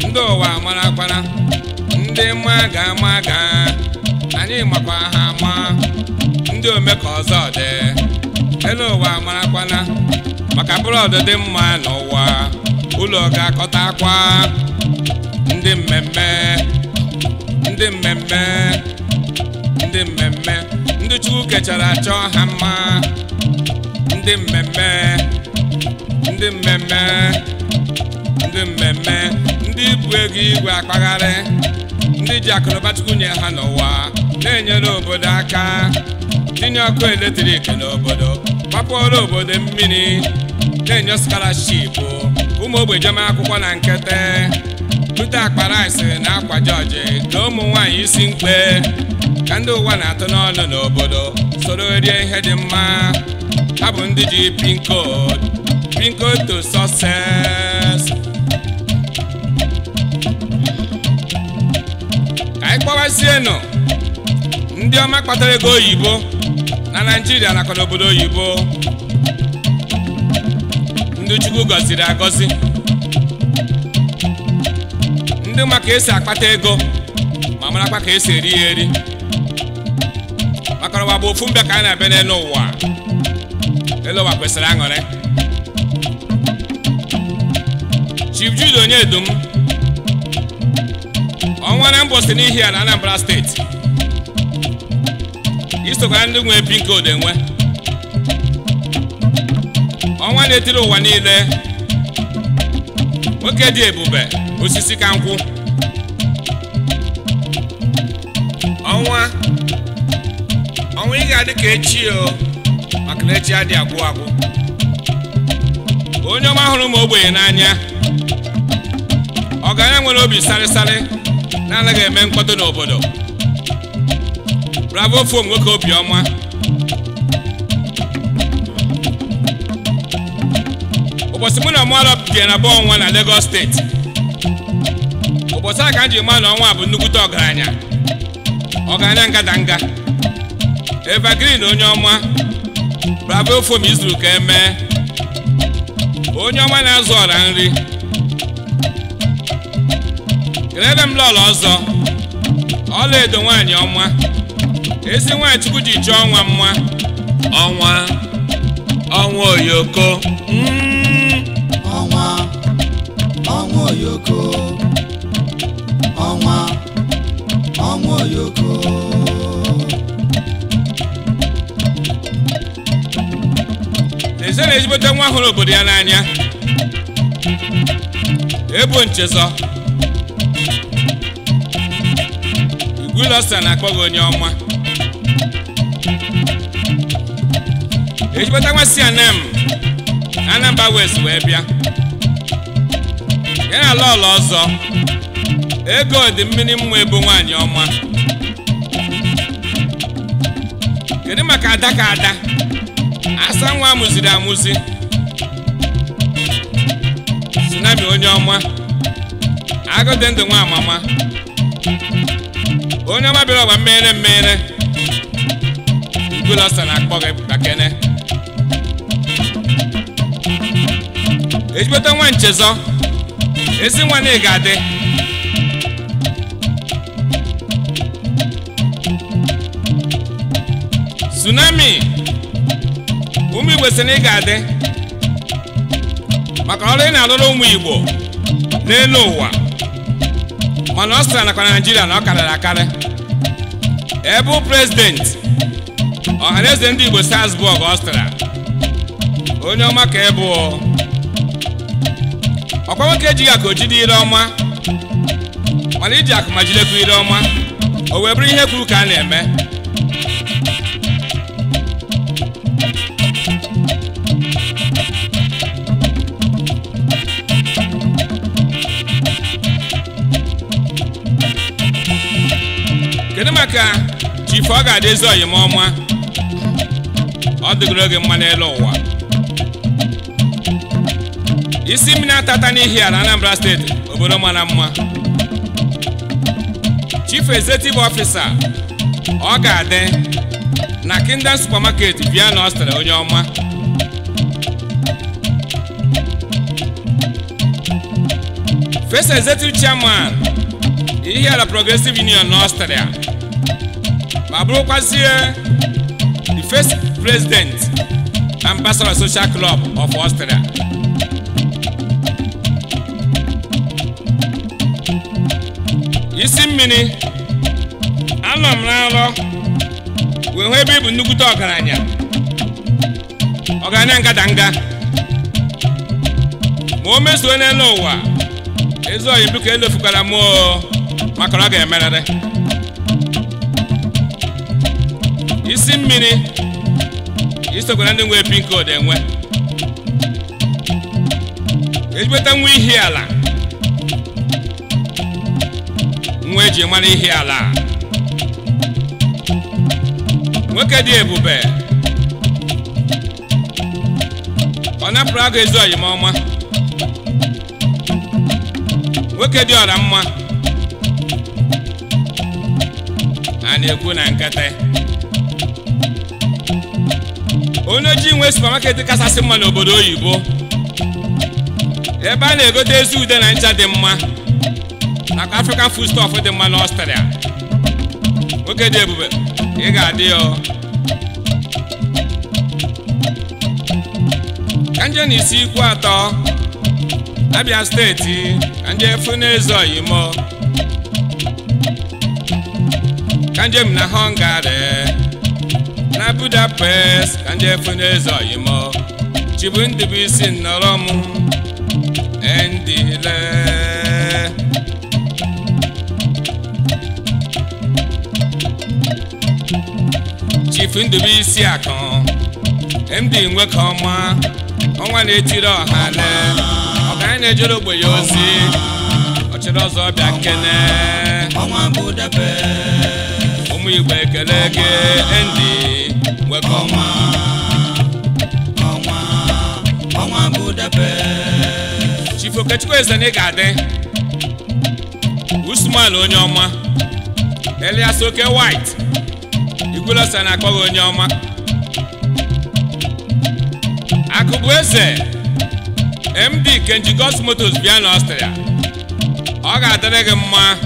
ndị ụwa marakwana ndị mma ga-ama aga, anyị makwa ha ama ndị ome ọzọ dị elu ụwa marakwana maka bụrọdụ dị mma n'ụwa ụlọ ga-akọta akwa ndị mmemme ndị mmemme ndị mmemme ndị chukwu kechara achọ ha mma ndị mmemme ndị mmemme ndị mmemme ndị bụ ego igwe akpagharị ndị ji akụnụba ha n'ụwa na-enyere obodo aka tinye ọkụ eletrik n'obodo gbapụọrọ obodo mmiri na-enye skalashipụ ụmụ ogbenye akwụkwọ na nkete akpara Akparais na Akwa Jọji na ụmụ nwanyị isi mkpe ka ndị ụwa na-atụ n'ọnụ n'obodo soro rie ihe dị mma ha bụ ndị ji pin code to ka anyị kpọwasienụ ndị ọma kpatara ego oyibo na Naịjirịa nakwa n'obodo oyibo ndị Chukwu gọziri agọzi ndị ma ka esi akpata ego ma marakwa ka esi eri ya eri maka ụwa bụ ofu mbe ka a na-ebe n'elu ụwa elu ụwa kwesịrị aṅụrị Chief Jude ọnwa na mbọsị n'ihi a na Anambra steeti isokwara ndị nwe bi nke ọnwa na-etiri ụwa niile nwoke dị ebube osisi ka nkwụ ọnwa ọnwa ị ga-adị ka echi o maka na echi adị agwụ agwụ onye ọma hụrụ m ogbenye n'anya ọgaranya nwere obi sarịsarị na-anaghị eme mkpọdo n'obodo bravo fom nwoke ọma. ụbọchị mụ na mmalụ bigara na ọnwa na Lagos steeti ụbọchị a ka m jiri ma na ọnwa bụ nnukwute ọgaranya ọgaranya ngadanga evergreen onye ọma bravo fom izuru ka emee onye ọma na-azụ ọra nri kelere m lọla ọzọ ọla edo nwaanyị ọma ezi nwaanyị chukwu ji chọọ ọnwa mma ọnwa ọnwa oyoko hmm. oyoko ọnwa ọnwa oyoko eze na-ezigbote nwa hụrụ obodo ya n'anya ebo nchezọ igwulọsa na akpọghị onye ọma Ejibota nwa si anam na Anambra West wee bịa ya na ụlọ ọzọ ego dị mmiri mmụọ ebu nwaanyị ọma kedu maka ada ka ada asa nwa amụziri amụzi tsunami onye ọma agụ ndụ nwa amama onye ọma bịara ọgba mmeghere mmeghere igulọsa na-akpọ gị bakene ejibota nwa nchezọ ezi nwanne ga-adị tsunami ụmụ igbo na ị ga-adị maka ọrụ ị na-alụrụ ụmụ igbo n'elu ụwa mana ọ sịra nakwa naijiria na ọ karịrị akarị ebe prezidenti ọhaneze ndị igbo salzburg ọ sịra onye ọma ka ebu ọkwa nwoke ejighị akụ ojide ire ọma mana iji akụ ma ire ọma o wee bụrụ ihe kwuru ka a na-eme kedu maka chifu ọ ga-adị ezi ọma ọ dịgoro oge mma n'elu ụwa isi mmiri na-atata n'ihi ala Anambra steeti obodo mara mma chief executive officer ọ ga-adị na Kingdom supermarket na Austria onye ọma first executive chairman Ihiala Progressive Union na australia ma bụrụkwazie the first president ambassador social club of australia. mmiri anọ m n'alọ wee hụ ebe ị bụ nnukwute ọgaranya ọgaranya ngadanga ma o mezuo n'elu ụwa ezi oyi biko elefukwara m maka ọ ga-emerịrị isi mmiri isokwara ndị nwee pinko dị enwe nwa ihi ala ji mara ihe ala nwoke dị ebube ọ napụrụ aga ezu ọyịma ọma nwoke dị ọra mma a na-ekwu na nkata onye ji nwe supamaket kachasị mma n'obodo oyibo ebe a na-egote ezi ude na ncha dị mma maka African foodstuff dị mma n'Ọstrịa oge dị ebube ị ga-adị ya ka nje na isi ikwu atọ Abia steeti ka nje ezo Oyimo ka njem na Hungary na Budapest ka nje ezo Oyimo chibu ndị bụ isi nnọrọ m endile Ifundụbụ Isiakụ MD Nwekeọma ọnwa na-etiri ọhale ọgaranya na-ejere ogbe ya ozi ọchịrị ọzọ bịa nkene ụmụ Igbo ekele gị MD Nwekeọma Chief Okechukwu eze na ị ga-adị Usman onye ọma Elias Oke White okolo na-akpọ gị onye ọma akụbụ eze md kenji gos motos bịa na ọ ga-adịrị gị mma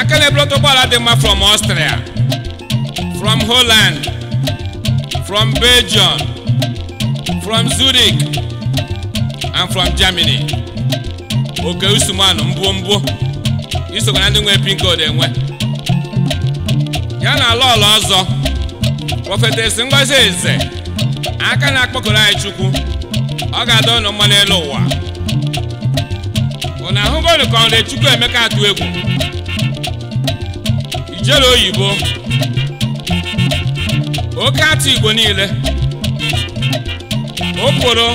aka na ụgbọala dị mma from ọstrịa from holland from belgium from zurich and from germany oke usumanu mbụ mbụ isokwa na ndị nwee pin enwe ya na ala ọla ọzọ prọfetesi ngozi eze aka na-akpọkọrọ anyị chukwu ọ ga adọ ụnụ mma n'elu ụwa ụnụ ahụgonu ka ọnụ chukwu emeka atụ egwu ijere oyibo oke atụ igbo niile okporo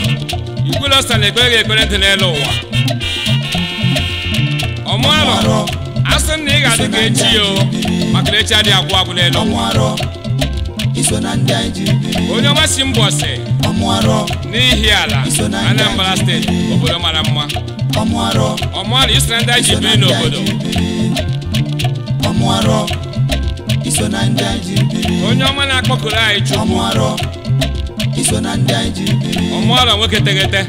igwulosa na ekpere ekpere dị n'elu ụwa ọmụalụ asị na ị ga-adị ka echi ya maka na echi adịghị agwụ agwụ n'elu onye ọma si mbọ si n'ihi ala Anambra steeti obodo mara mma ọmụarụ iso na ndị anyị ji biri n'obodo onye ọma na-akpọkuru anyị chukwu ọmụarọ nwoke tegete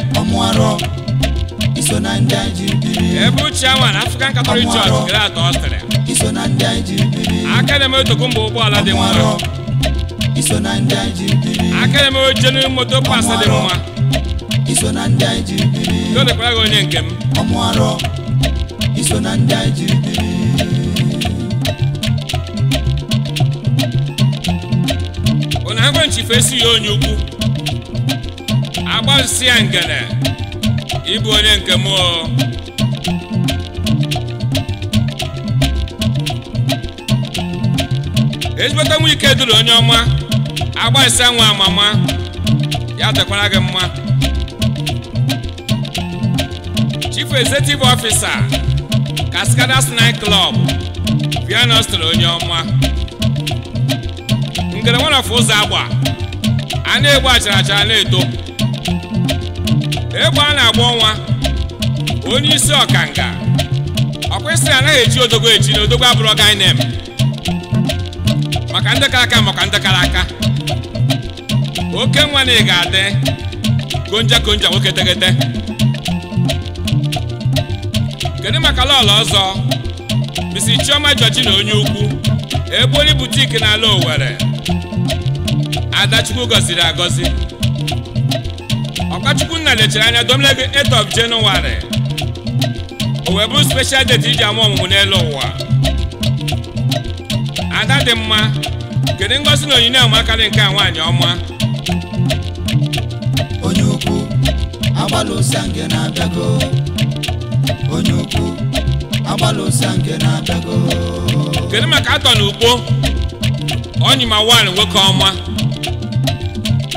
ebe uche awa na Afrịkan Katọlik Church gre atọ ọ sịrị iso na aka na-eme otoko ụgbọala dị mma iso aka na-eme oche na moto pas dị mma iso na ndị anyị onye nke m ọmụ arọ iso na ndị anyị jiri ụna ya onye ukwu agbazisi ya ngene ịbụ onye nke mụọ ezigbote nwa ike duru onye ọma agba ise nwa amama ya dekwara gị mma chief executive officer cascadas night club vianostri onye ọma ngere ọfụ ụzọ agba a na-egbu achara achara na-eto egbe a na-agba ọnwa onye isi ọkanga isi anaghị eji odogo eji na odogo abụrụ ọgainem maka ndị kara aka maka ndị oke nwa na ị ga-adị konja konja nwoke tegete kedu maka lọọlụ ọzọ bisi chioma jọji na onye ukwu egbori butiki n'ala owere adachukwu gọziri agọzi ọkachukwu nna lechara anya domleg 8 of January o wee bụrụ special date iji ama ọmụmụ n'elu ụwa ada dị mma kedu ngozi na onyinye amakarị nke a nwaanyị ọma onye ukwu agbala nke na-abịago onye ukwu agbala nke na-abịago kedu maka atọ na ugbo onyima nwaanyị nwoke ọma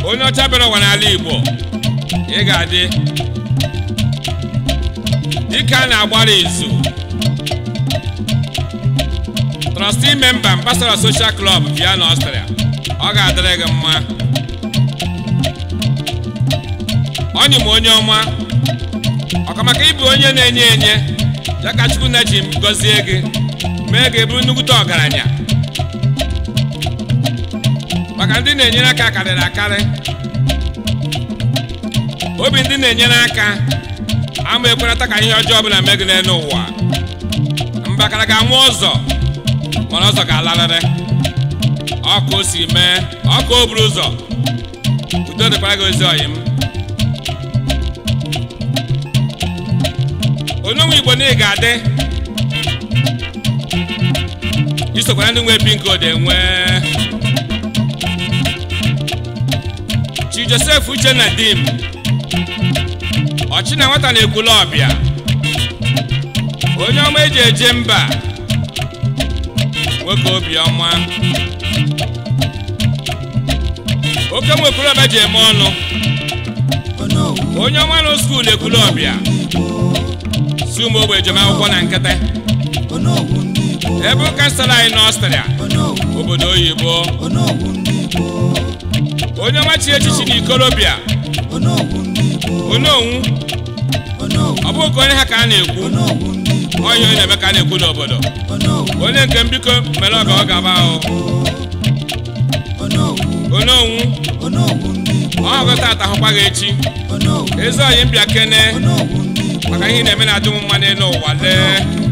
onye ọcha bịara ụwa n'ala Igbo ị ga-adị dịka a na-agbara izu mana site ime mba mgbasara soshal klọb bịa na ọstrịa ọ ga-adịrị gị mma ọnyị m onye ọma ọkamaka ịbụ onye na-enye enye ya ka na ji gọzie gị mee gị bụrụ nnukwute ọgaranya maka ndị na-enyere aka karịrị akarị obi ndị na-enyere aka ama ekwenata ka ihe ọjọọ ọbụla mee gị n'elu ụwa mbakara ga-anwụ ọzọ mana ọzọ ga alalịrị ọkụ si mee ọkụ o buru ụzọ udo dịkwara gị ozi ọyị m onye nwe igbo niile ga-adị isokwara ndị nwe bi nke ode nwee chi josef uchenna dim ọchị na nwata na-ekwula ọbịa onye ọma eji eje mba nwoke obiọma oke nwekwurọba ji eme ọnụ onye ọma nọ skuul ekwuru ọbịa si O ogbe jem akwụkwọ na nkịtị ebe ụka sara anyị n'ọstrịa obodo oyibo onye ọma chi echichi na ikorobịa ononwu ọ bụghị ka onye ha ka a na-ekwu onye onye Emeka na-ekwu n'obodo onye nke m biko mere ọ ka ọ gaba ononwu ọ atahụkwa gị echi ezi oyi mbịa kene maka ihe na-eme na adịnwụ mma n'ụwa lee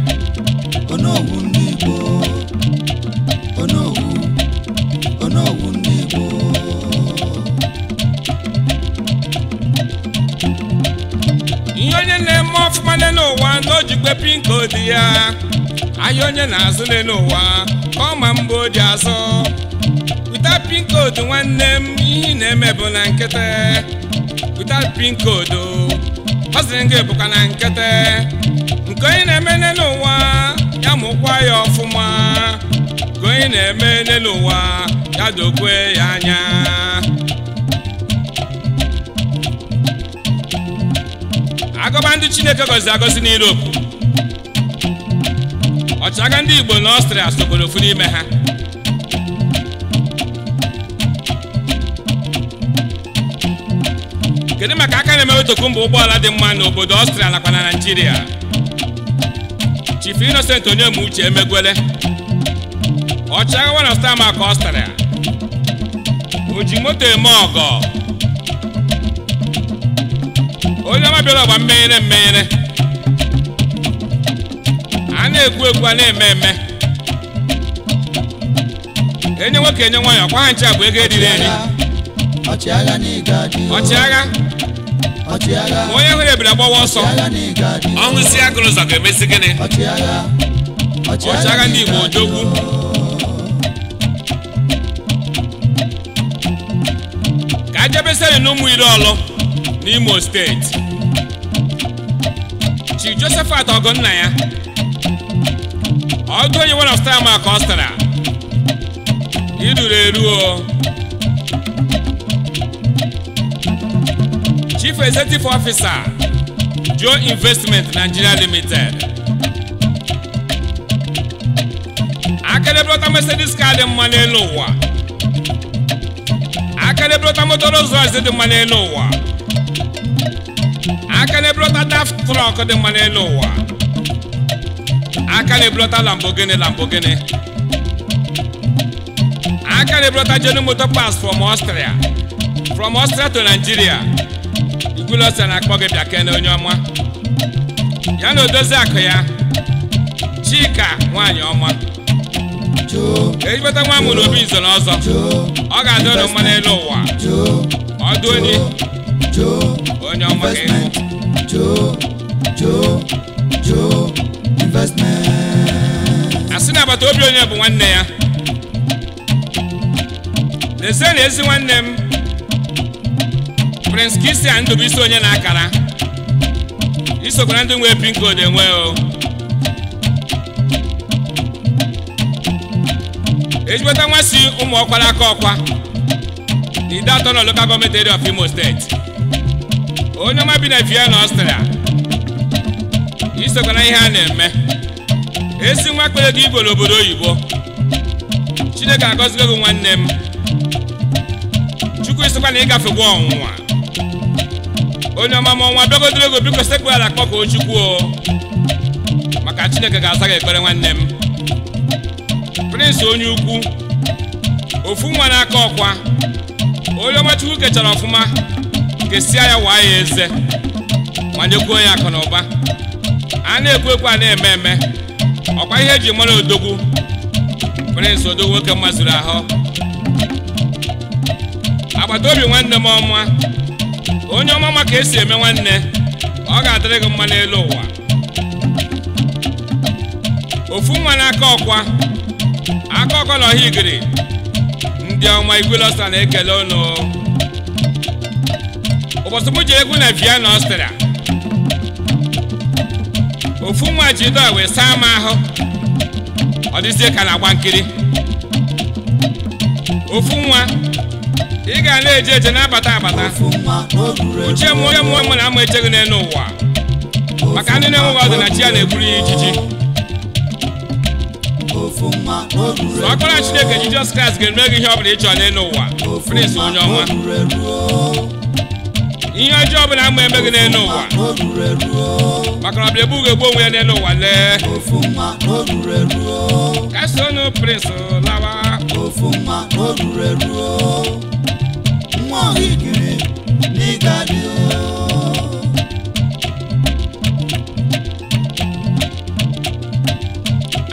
ya ahịa onye na azụ n'ụwa ka ọ ma mbụ dị azụ wụta pinkoodu nwanne m ihe na-eme bụ na nkịtị wụta pinkoodu ọ sịrị gị bụkwa na nkịtị nke onye na-eme n'ụwa ya mụkwa ya ọfụma Nke onye na-eme n'ụwa ya dokwe ya anya Agụba ndị chineke gọziri agọzi n'Europe otu aga ndị Igbo na Ọstrịa soboro ofu n'ime ha kedu maka aka na-emewetokwu mba ụgbọala dị mma n'obodo Ọstrịa nakwa na Naịjirịa Chief Innocent onyemuchi Uche Emegwele ọchịagha na star maka Ọstrịa o ji moto eme ọgọ onye ọma bịara ọgba mmenyere mmenyere a na-egwu egwu a na-eme eme enye nwoke enye nwaanyị ọkwa ha nche bụ ego eriri eri ọchịagha onye nwere ebiri agbawa ọsọ ọnwụ si agụrụ ụzọ ga-emesi gịnị ọchịagha ndị Igbo ojogwu. ka e jebesere na iri ọlụ n'Imo steeti Chi Josephat nna ya ọjọ onye nwere ọstara ma ka ọ stara iduru eruo chief executive officer joe investment nigeria limited akedebelọta mercedes ka dị mma n'elu ụwa akedebelọta motor rolls royce dị mma n'elu ụwa akedebelọta daft trọk dị mma n'elu ụwa aka na-ebulata Lamborghini Lamborghini aka na-ebulata Johnny Motor Parts from Austria from Austria to Nigeria igwulose na-akpọ gị bịa kene onye ọma ya na odozi akụ ya Chika nwaanyị ọma ejibata nwa amụrụ obi nzo n'ọzọ ọ ga-adị ụlọ mma n'elu ụwa ọdụ onye onye ọma ga-ewu investment. asị na agbata obi onye bụ nwanne ya lezienụ ezi nwanne m prince Christian Ndubuisi onye na-akara isokwa na ndị nwee pin code enwe o ejigbata nwa si ụmụ ọkwara aka ọkwa ide atọ na local gọọmenti area of Imo steeti onye nwa bi na Vienna Austria isokwana ihe a na-eme esi nwa kpere gị igbo n'obodo oyibo chineke agọzigo gị nwanne m chukwu isokwa na ịgafe gwa ọnwụnwa onye ọma ma ọnwa bịagodoro ego biko sekpu ala kpọkọọ chukwu o maka chineke ga-aza gị ekpere nwanne m prịnsị onye ukwu ofu nwa n'aka ọkwa onye ọma chukwu kechara ọfụma kesia ya waa ya eze ma nyekwuo ya akụ na ụba a na-ekwu ekwu a na-eme eme ọkwa ihe eji mara odogwu prịnsị odogwu nwoke mazuru ahụ agbata obi nwanne m ọma onye ọma ma ka esi eme nwanne ọ ga-adịrị gị mma n'elu ụwa ofu nwa na-aka ọkwa aka ọkwa na ọha igiri ndị ọma igwelọsta na-ekele ụnụ ụbọchị m ji egwu na Vienna Ọstrịa ofu nwa jido wee saa m ahụ ọ dịzie ka na-agba nkiri ofu nwa ị ga na-eje eje na-abata abata uche m onye mụọ na ama echeghị n'elu ụwa maka ndị na-enweghị ọdịnachi ya na-egburu ya ijiji ọkpara Chineke Jizọs Kraịst ga-eme gị ihe ọ bụla ịchọ n'elu ụwa onye ọma ihe ọjọọ ọbụla ama emeghị n'elu ụwa maka na ọbịa ebughị egbu onwe ya n'elu ụwa lee kasonụ prins lawa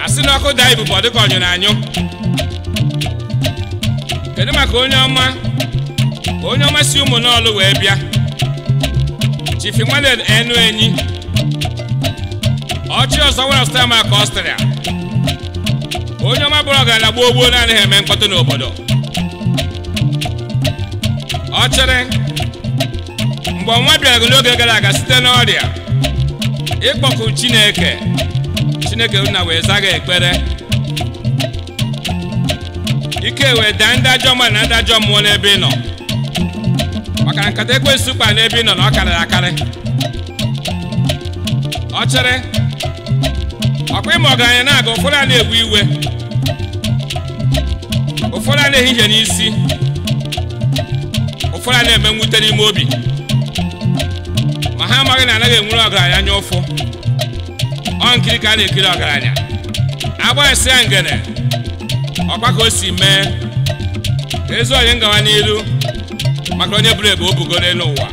asị n'ọkụ daa ibubo dịka ọnyụrụ anyụ kedu maka onye ọma onye ọma si ụmụ n'ọlụ wee bịa Chief Emmanuel Enu Enyi ọchị ọsọ nwere ọstria ọsịrị a. onye ọma bụrụ ọgaranya gbuo ogbuo naanị eme mkpọtụ n'obodo ọ chere, mgbe ọnwa bịara n'oge gara aga site n'ọrịa ịkpọkụ Chineke Chineke nna wee zaa ekpere ike wee daa ndị ajọ na ndị ajọ mmụọ n'ebe ị nọ maka nkata ekwensu kpa n'ebe ị nọ na ọ karịrị akarị ọchịrị ọkwa ịma ọgaranya na-aga ụfọdụ a na-egbu iwe ụfọdụ a na-ehihie n'isi ụfọdụ a na-eme nwute n'ime obi ma ha amaghị na anaghị enwere ọgaranya anya ụfụ ọ nkiri ka a na-ekiri ọgaranya agba esi ya ngene ọkwa ka o si mee ezi onye ngawa n'iru maka onye bụrụ ebe o bugoro elu ụwa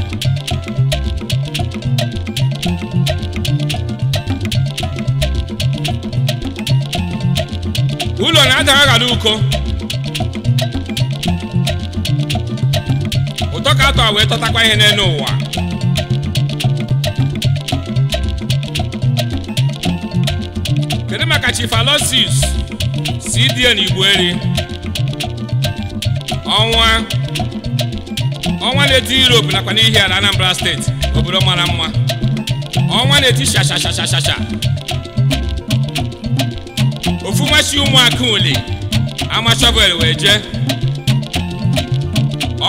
ụlọ na-adaghara uko ụtọ ka atọ wee tọtakwa ihe n'elu ụwa kedu maka chifalosis cdn igbueri ọnwa ọnwa na-eti Europe nakwa n'ihi ala Anambra steeti obodo mara mma ọnwa na-eti shashashashasha ofu nwachi ụmụaka ole ama shọvel wee jee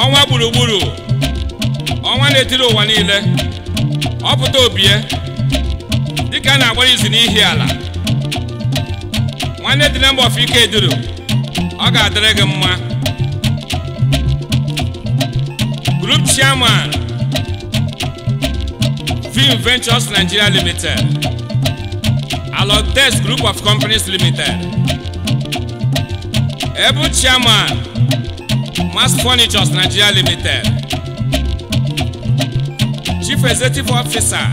ọnwa gburugburu ọnwa na-etiri ụwa niile ọpụta obie dịka a na-agbara izu n'ihi ala nwanne dị na mba ofike duru ọ ga-adịrị gị mma chairman Film Ventures Nigeria Limited, Alogdex Group of Companies Limited, Ebu chairman Mass Furnitures Nigeria Limited, Chief Executive Officer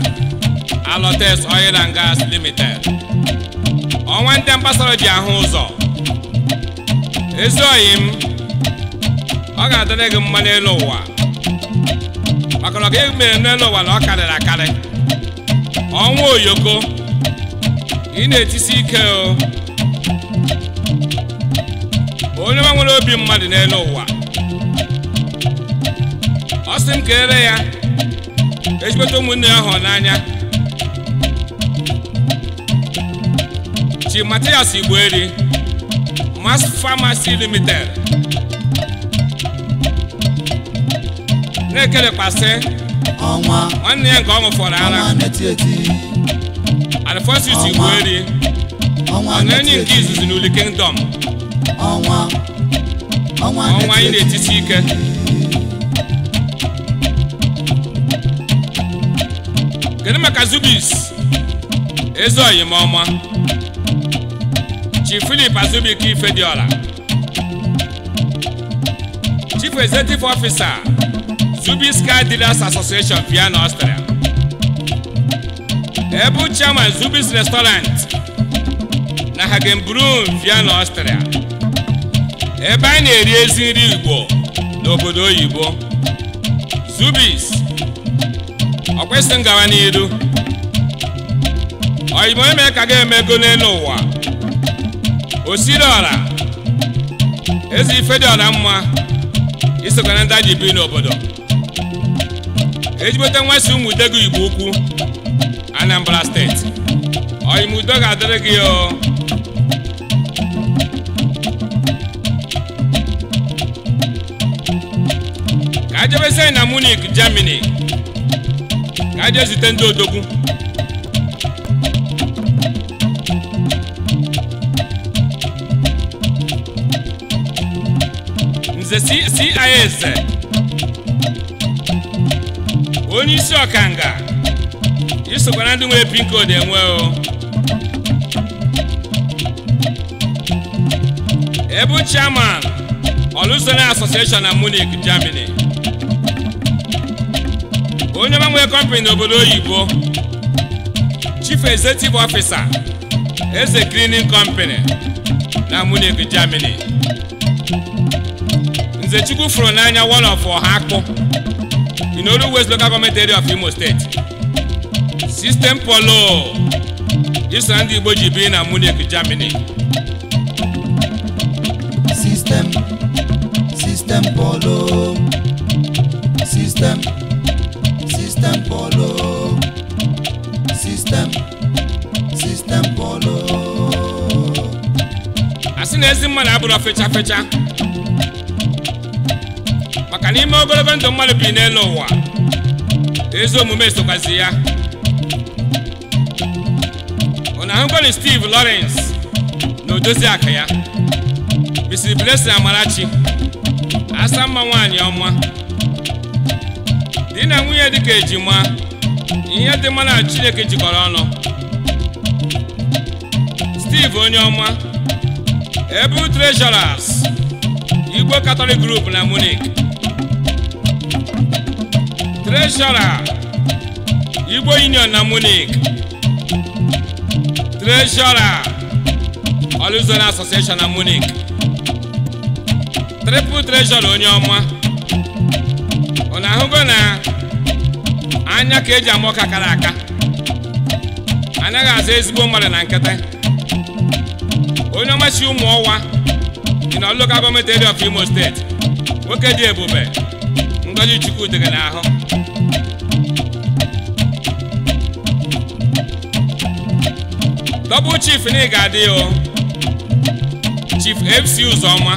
Alogdex Oil and Gas Limited, ọnwa ndị mgbasara ji ahụ ụzọ ezi oyi m ọ ga-adịrị gị mma n'elu ụwa ọnọdụ emere n'elu n'ụwa na ọ karịrị akarị ọnwa oyoko ị na-etisi ike o onye nwa nwere obi mmadụ n'elu ụwa ọ sị m kelere ya ejikweta ụmụnne ya hụ n'anya chi matias eri mas famasi limited na nwanne ya nke ọ ṅụfọrọ ara Alphonsus Igboerie ọ na enyi nke izuzu n'Uli Kingdom ọnwa anyị na-etiti ike kedu maka Zubis filip Chief Philip dị ọla. Chief Executive ọfisa. Zubiscar Dealers Association Vienna, Austria. Ebu Chairman Zubis Restaurant na Hagenbrun Vienna, Austria. Ebe anyị na-eri ezi nri Igbo n'obodo oyibo Zubis ọ kwesịrị ngawa n'iru eme ka ga-emego n'elu ụwa osiriọra eze ife dị ọra mma isokwa na ndị bi n'obodo ejibota nwasi ụmụ gị igbo ukwu Anambra steeti oyimudo ga-adịrị gị o ka ajebesi na Munich Germany ka aje zute ndị odogwu nze CIS onye isi ọkanga nga ndị nwere pin code enwe o ebu chairman Olusola Association na Munich Germany onye mmanwe kọmpani n'obodo oyibo chief executive officer eze cleaning company na Munich Germany nze Chukwu fụrụ n'anya one of ọha akpụ You know the West local government area of Imo State. System Polo, this and Igbo Jibi in Amunich, Germany. System, System Polo, System, System Polo, System, System Polo. Asị na ezi mmadụ abụrụ fetcha, fetcha. maka n'ime ogologo ndụ mmadụ bi n'elu ụwa ezi omume sokwazi ya na ahụgwali Steve Lawrence na odozi aka ya Mrs. Blessing Amarachi asa mma nwaanyị ọma di na nwunye dịka ejima ihe dị mma na Chineke jikọrọ ọnụ Steve onye ọma ebu treasurers Igbo Katọlik Group na Munich Treshọra Igbo Union na Munich Treshọra Oluzon Association na Munich Triple Treshọra onye ọma ọ na-ahụgo na anya ka eji ama ọka kara aka anaghị azụ ezigbo mmadụ na nkịtị onye ọmachi ụmụ ọwa dị na local government area of Imo steeti nwoke dị ebube ngọzi chukwu dịghị n'ahụ dọbụ chief na ị ga-adị o chief fc ụzọma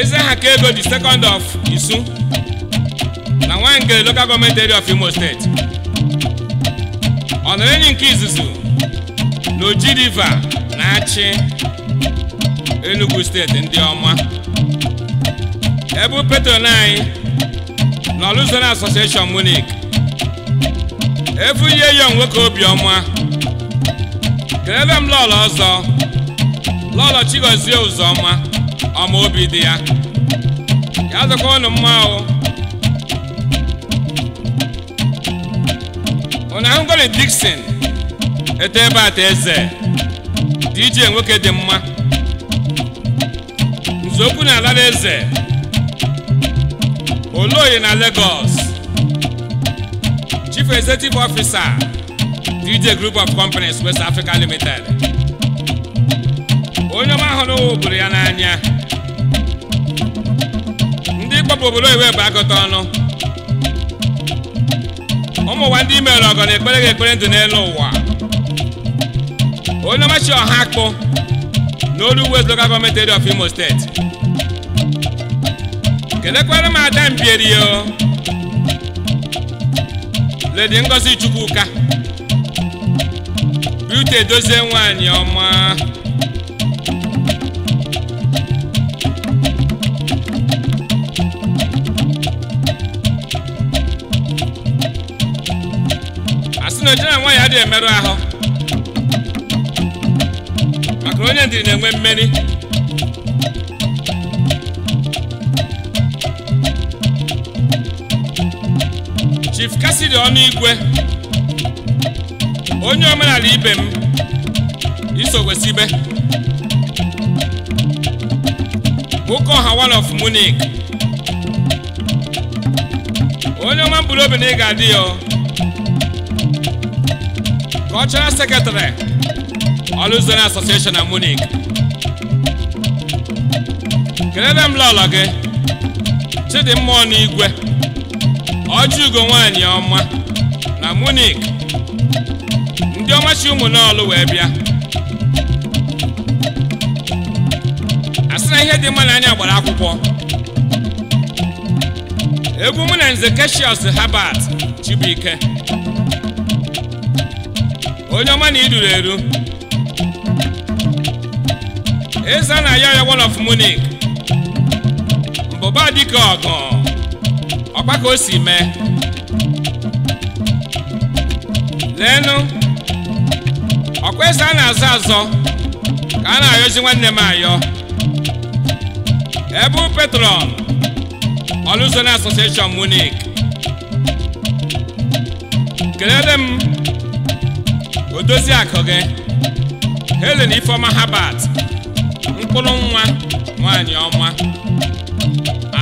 eze ha ka ego the second of isu na nwangele local government area of imo steeti ọ enyi nke izuzu na oji na-achị enugu steeti ndị ọma ebu petron anyị na Luzon Association Munich efu ihe yo nwoke obiọma kelele m lọlọ ọzọ lọlọ Chigozie Uzoma ọma obi dị ya ya dịkwa ụnụ mma o ụnụ ahụ gole Dixon eto ebe ata eze DJ nwoke dị mma nzọụkwụ na ala eze Oloye na Lagos Chief Executive Officer DJ Group of Companies West Africa Limited onye ọma ahụ n'obodo ya n'anya ndị kpọpụ obodo iwe bụ agụta ọnụ ụmụ ụwa ndị imere ọgọ na ekpere gị ekpere ndụ n'elu ụwa onye chi ọha akpụ n'olu West Local Government Area of Imo State kelekwere m ada mbierio ledi ngozi chukwuka biute edozie nwanyị ọma asị na ojena ya dị emerụ ahụ maka onye ndị na-enwe mmeri Chief ọnụ igwe, onye omenala ibe m isogwesibe Bukoha one of munic onye ọma mkpụrụ obi na ị ga-adị ya cultural secretary Oluzone asociation na munic kelere m lọlọ gị Chidimma igwe. ugo nwanyị ọma na munik ndị ọmachi chi ụmụnọlụ wee bịa asị na ihe dị mma na anya gbara akwụkwọ egwu mụ na nze keshios habat chibuike onye ọma na iduru eru eze na ya ya one of munik mbụba dịka ọgụ ọkwa ka o si mee leenụ ọkwa eze a na-azọ azọ ka a na-ayọzi nwanne m ayọ ebe petron ọlụzo na asosieshọn munich kelele m odozi akụ gị helen ifeoma habat mkpụrụ nwa nwaanyị ọma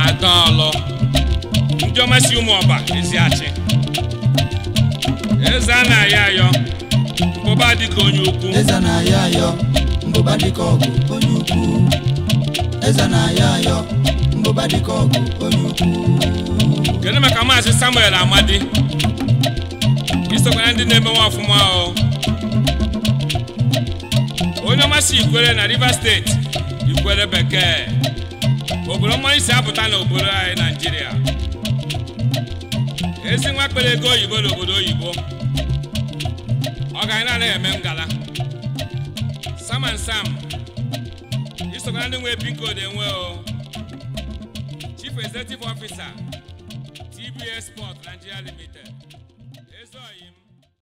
adaọlụ Ijeoma si ụmụ ọba ezi achị eze a na-ayọ ayọ mbụba dịka onye ukwu eze na-ayọ ayọ mbụba dịka ọgụ onye ukwu eze na-ayọ ayọ mbụba dịka ọgụ onye ukwu kedu maka maazị Samuel Amadi isokwa na ndị na-eme nwa ọfụma onye ọma si Ikwere na Rivers steeti Ikwere bekee obodo mmanụ si apụta n'obodo anyị Naijiria esi nwa kpere ego oyibo n'obodo oyibo ọ ga anaghị eme ngala sam and sam isokwa ndị nwe pin code enwe o chief executive officer tbs sport nigeria limited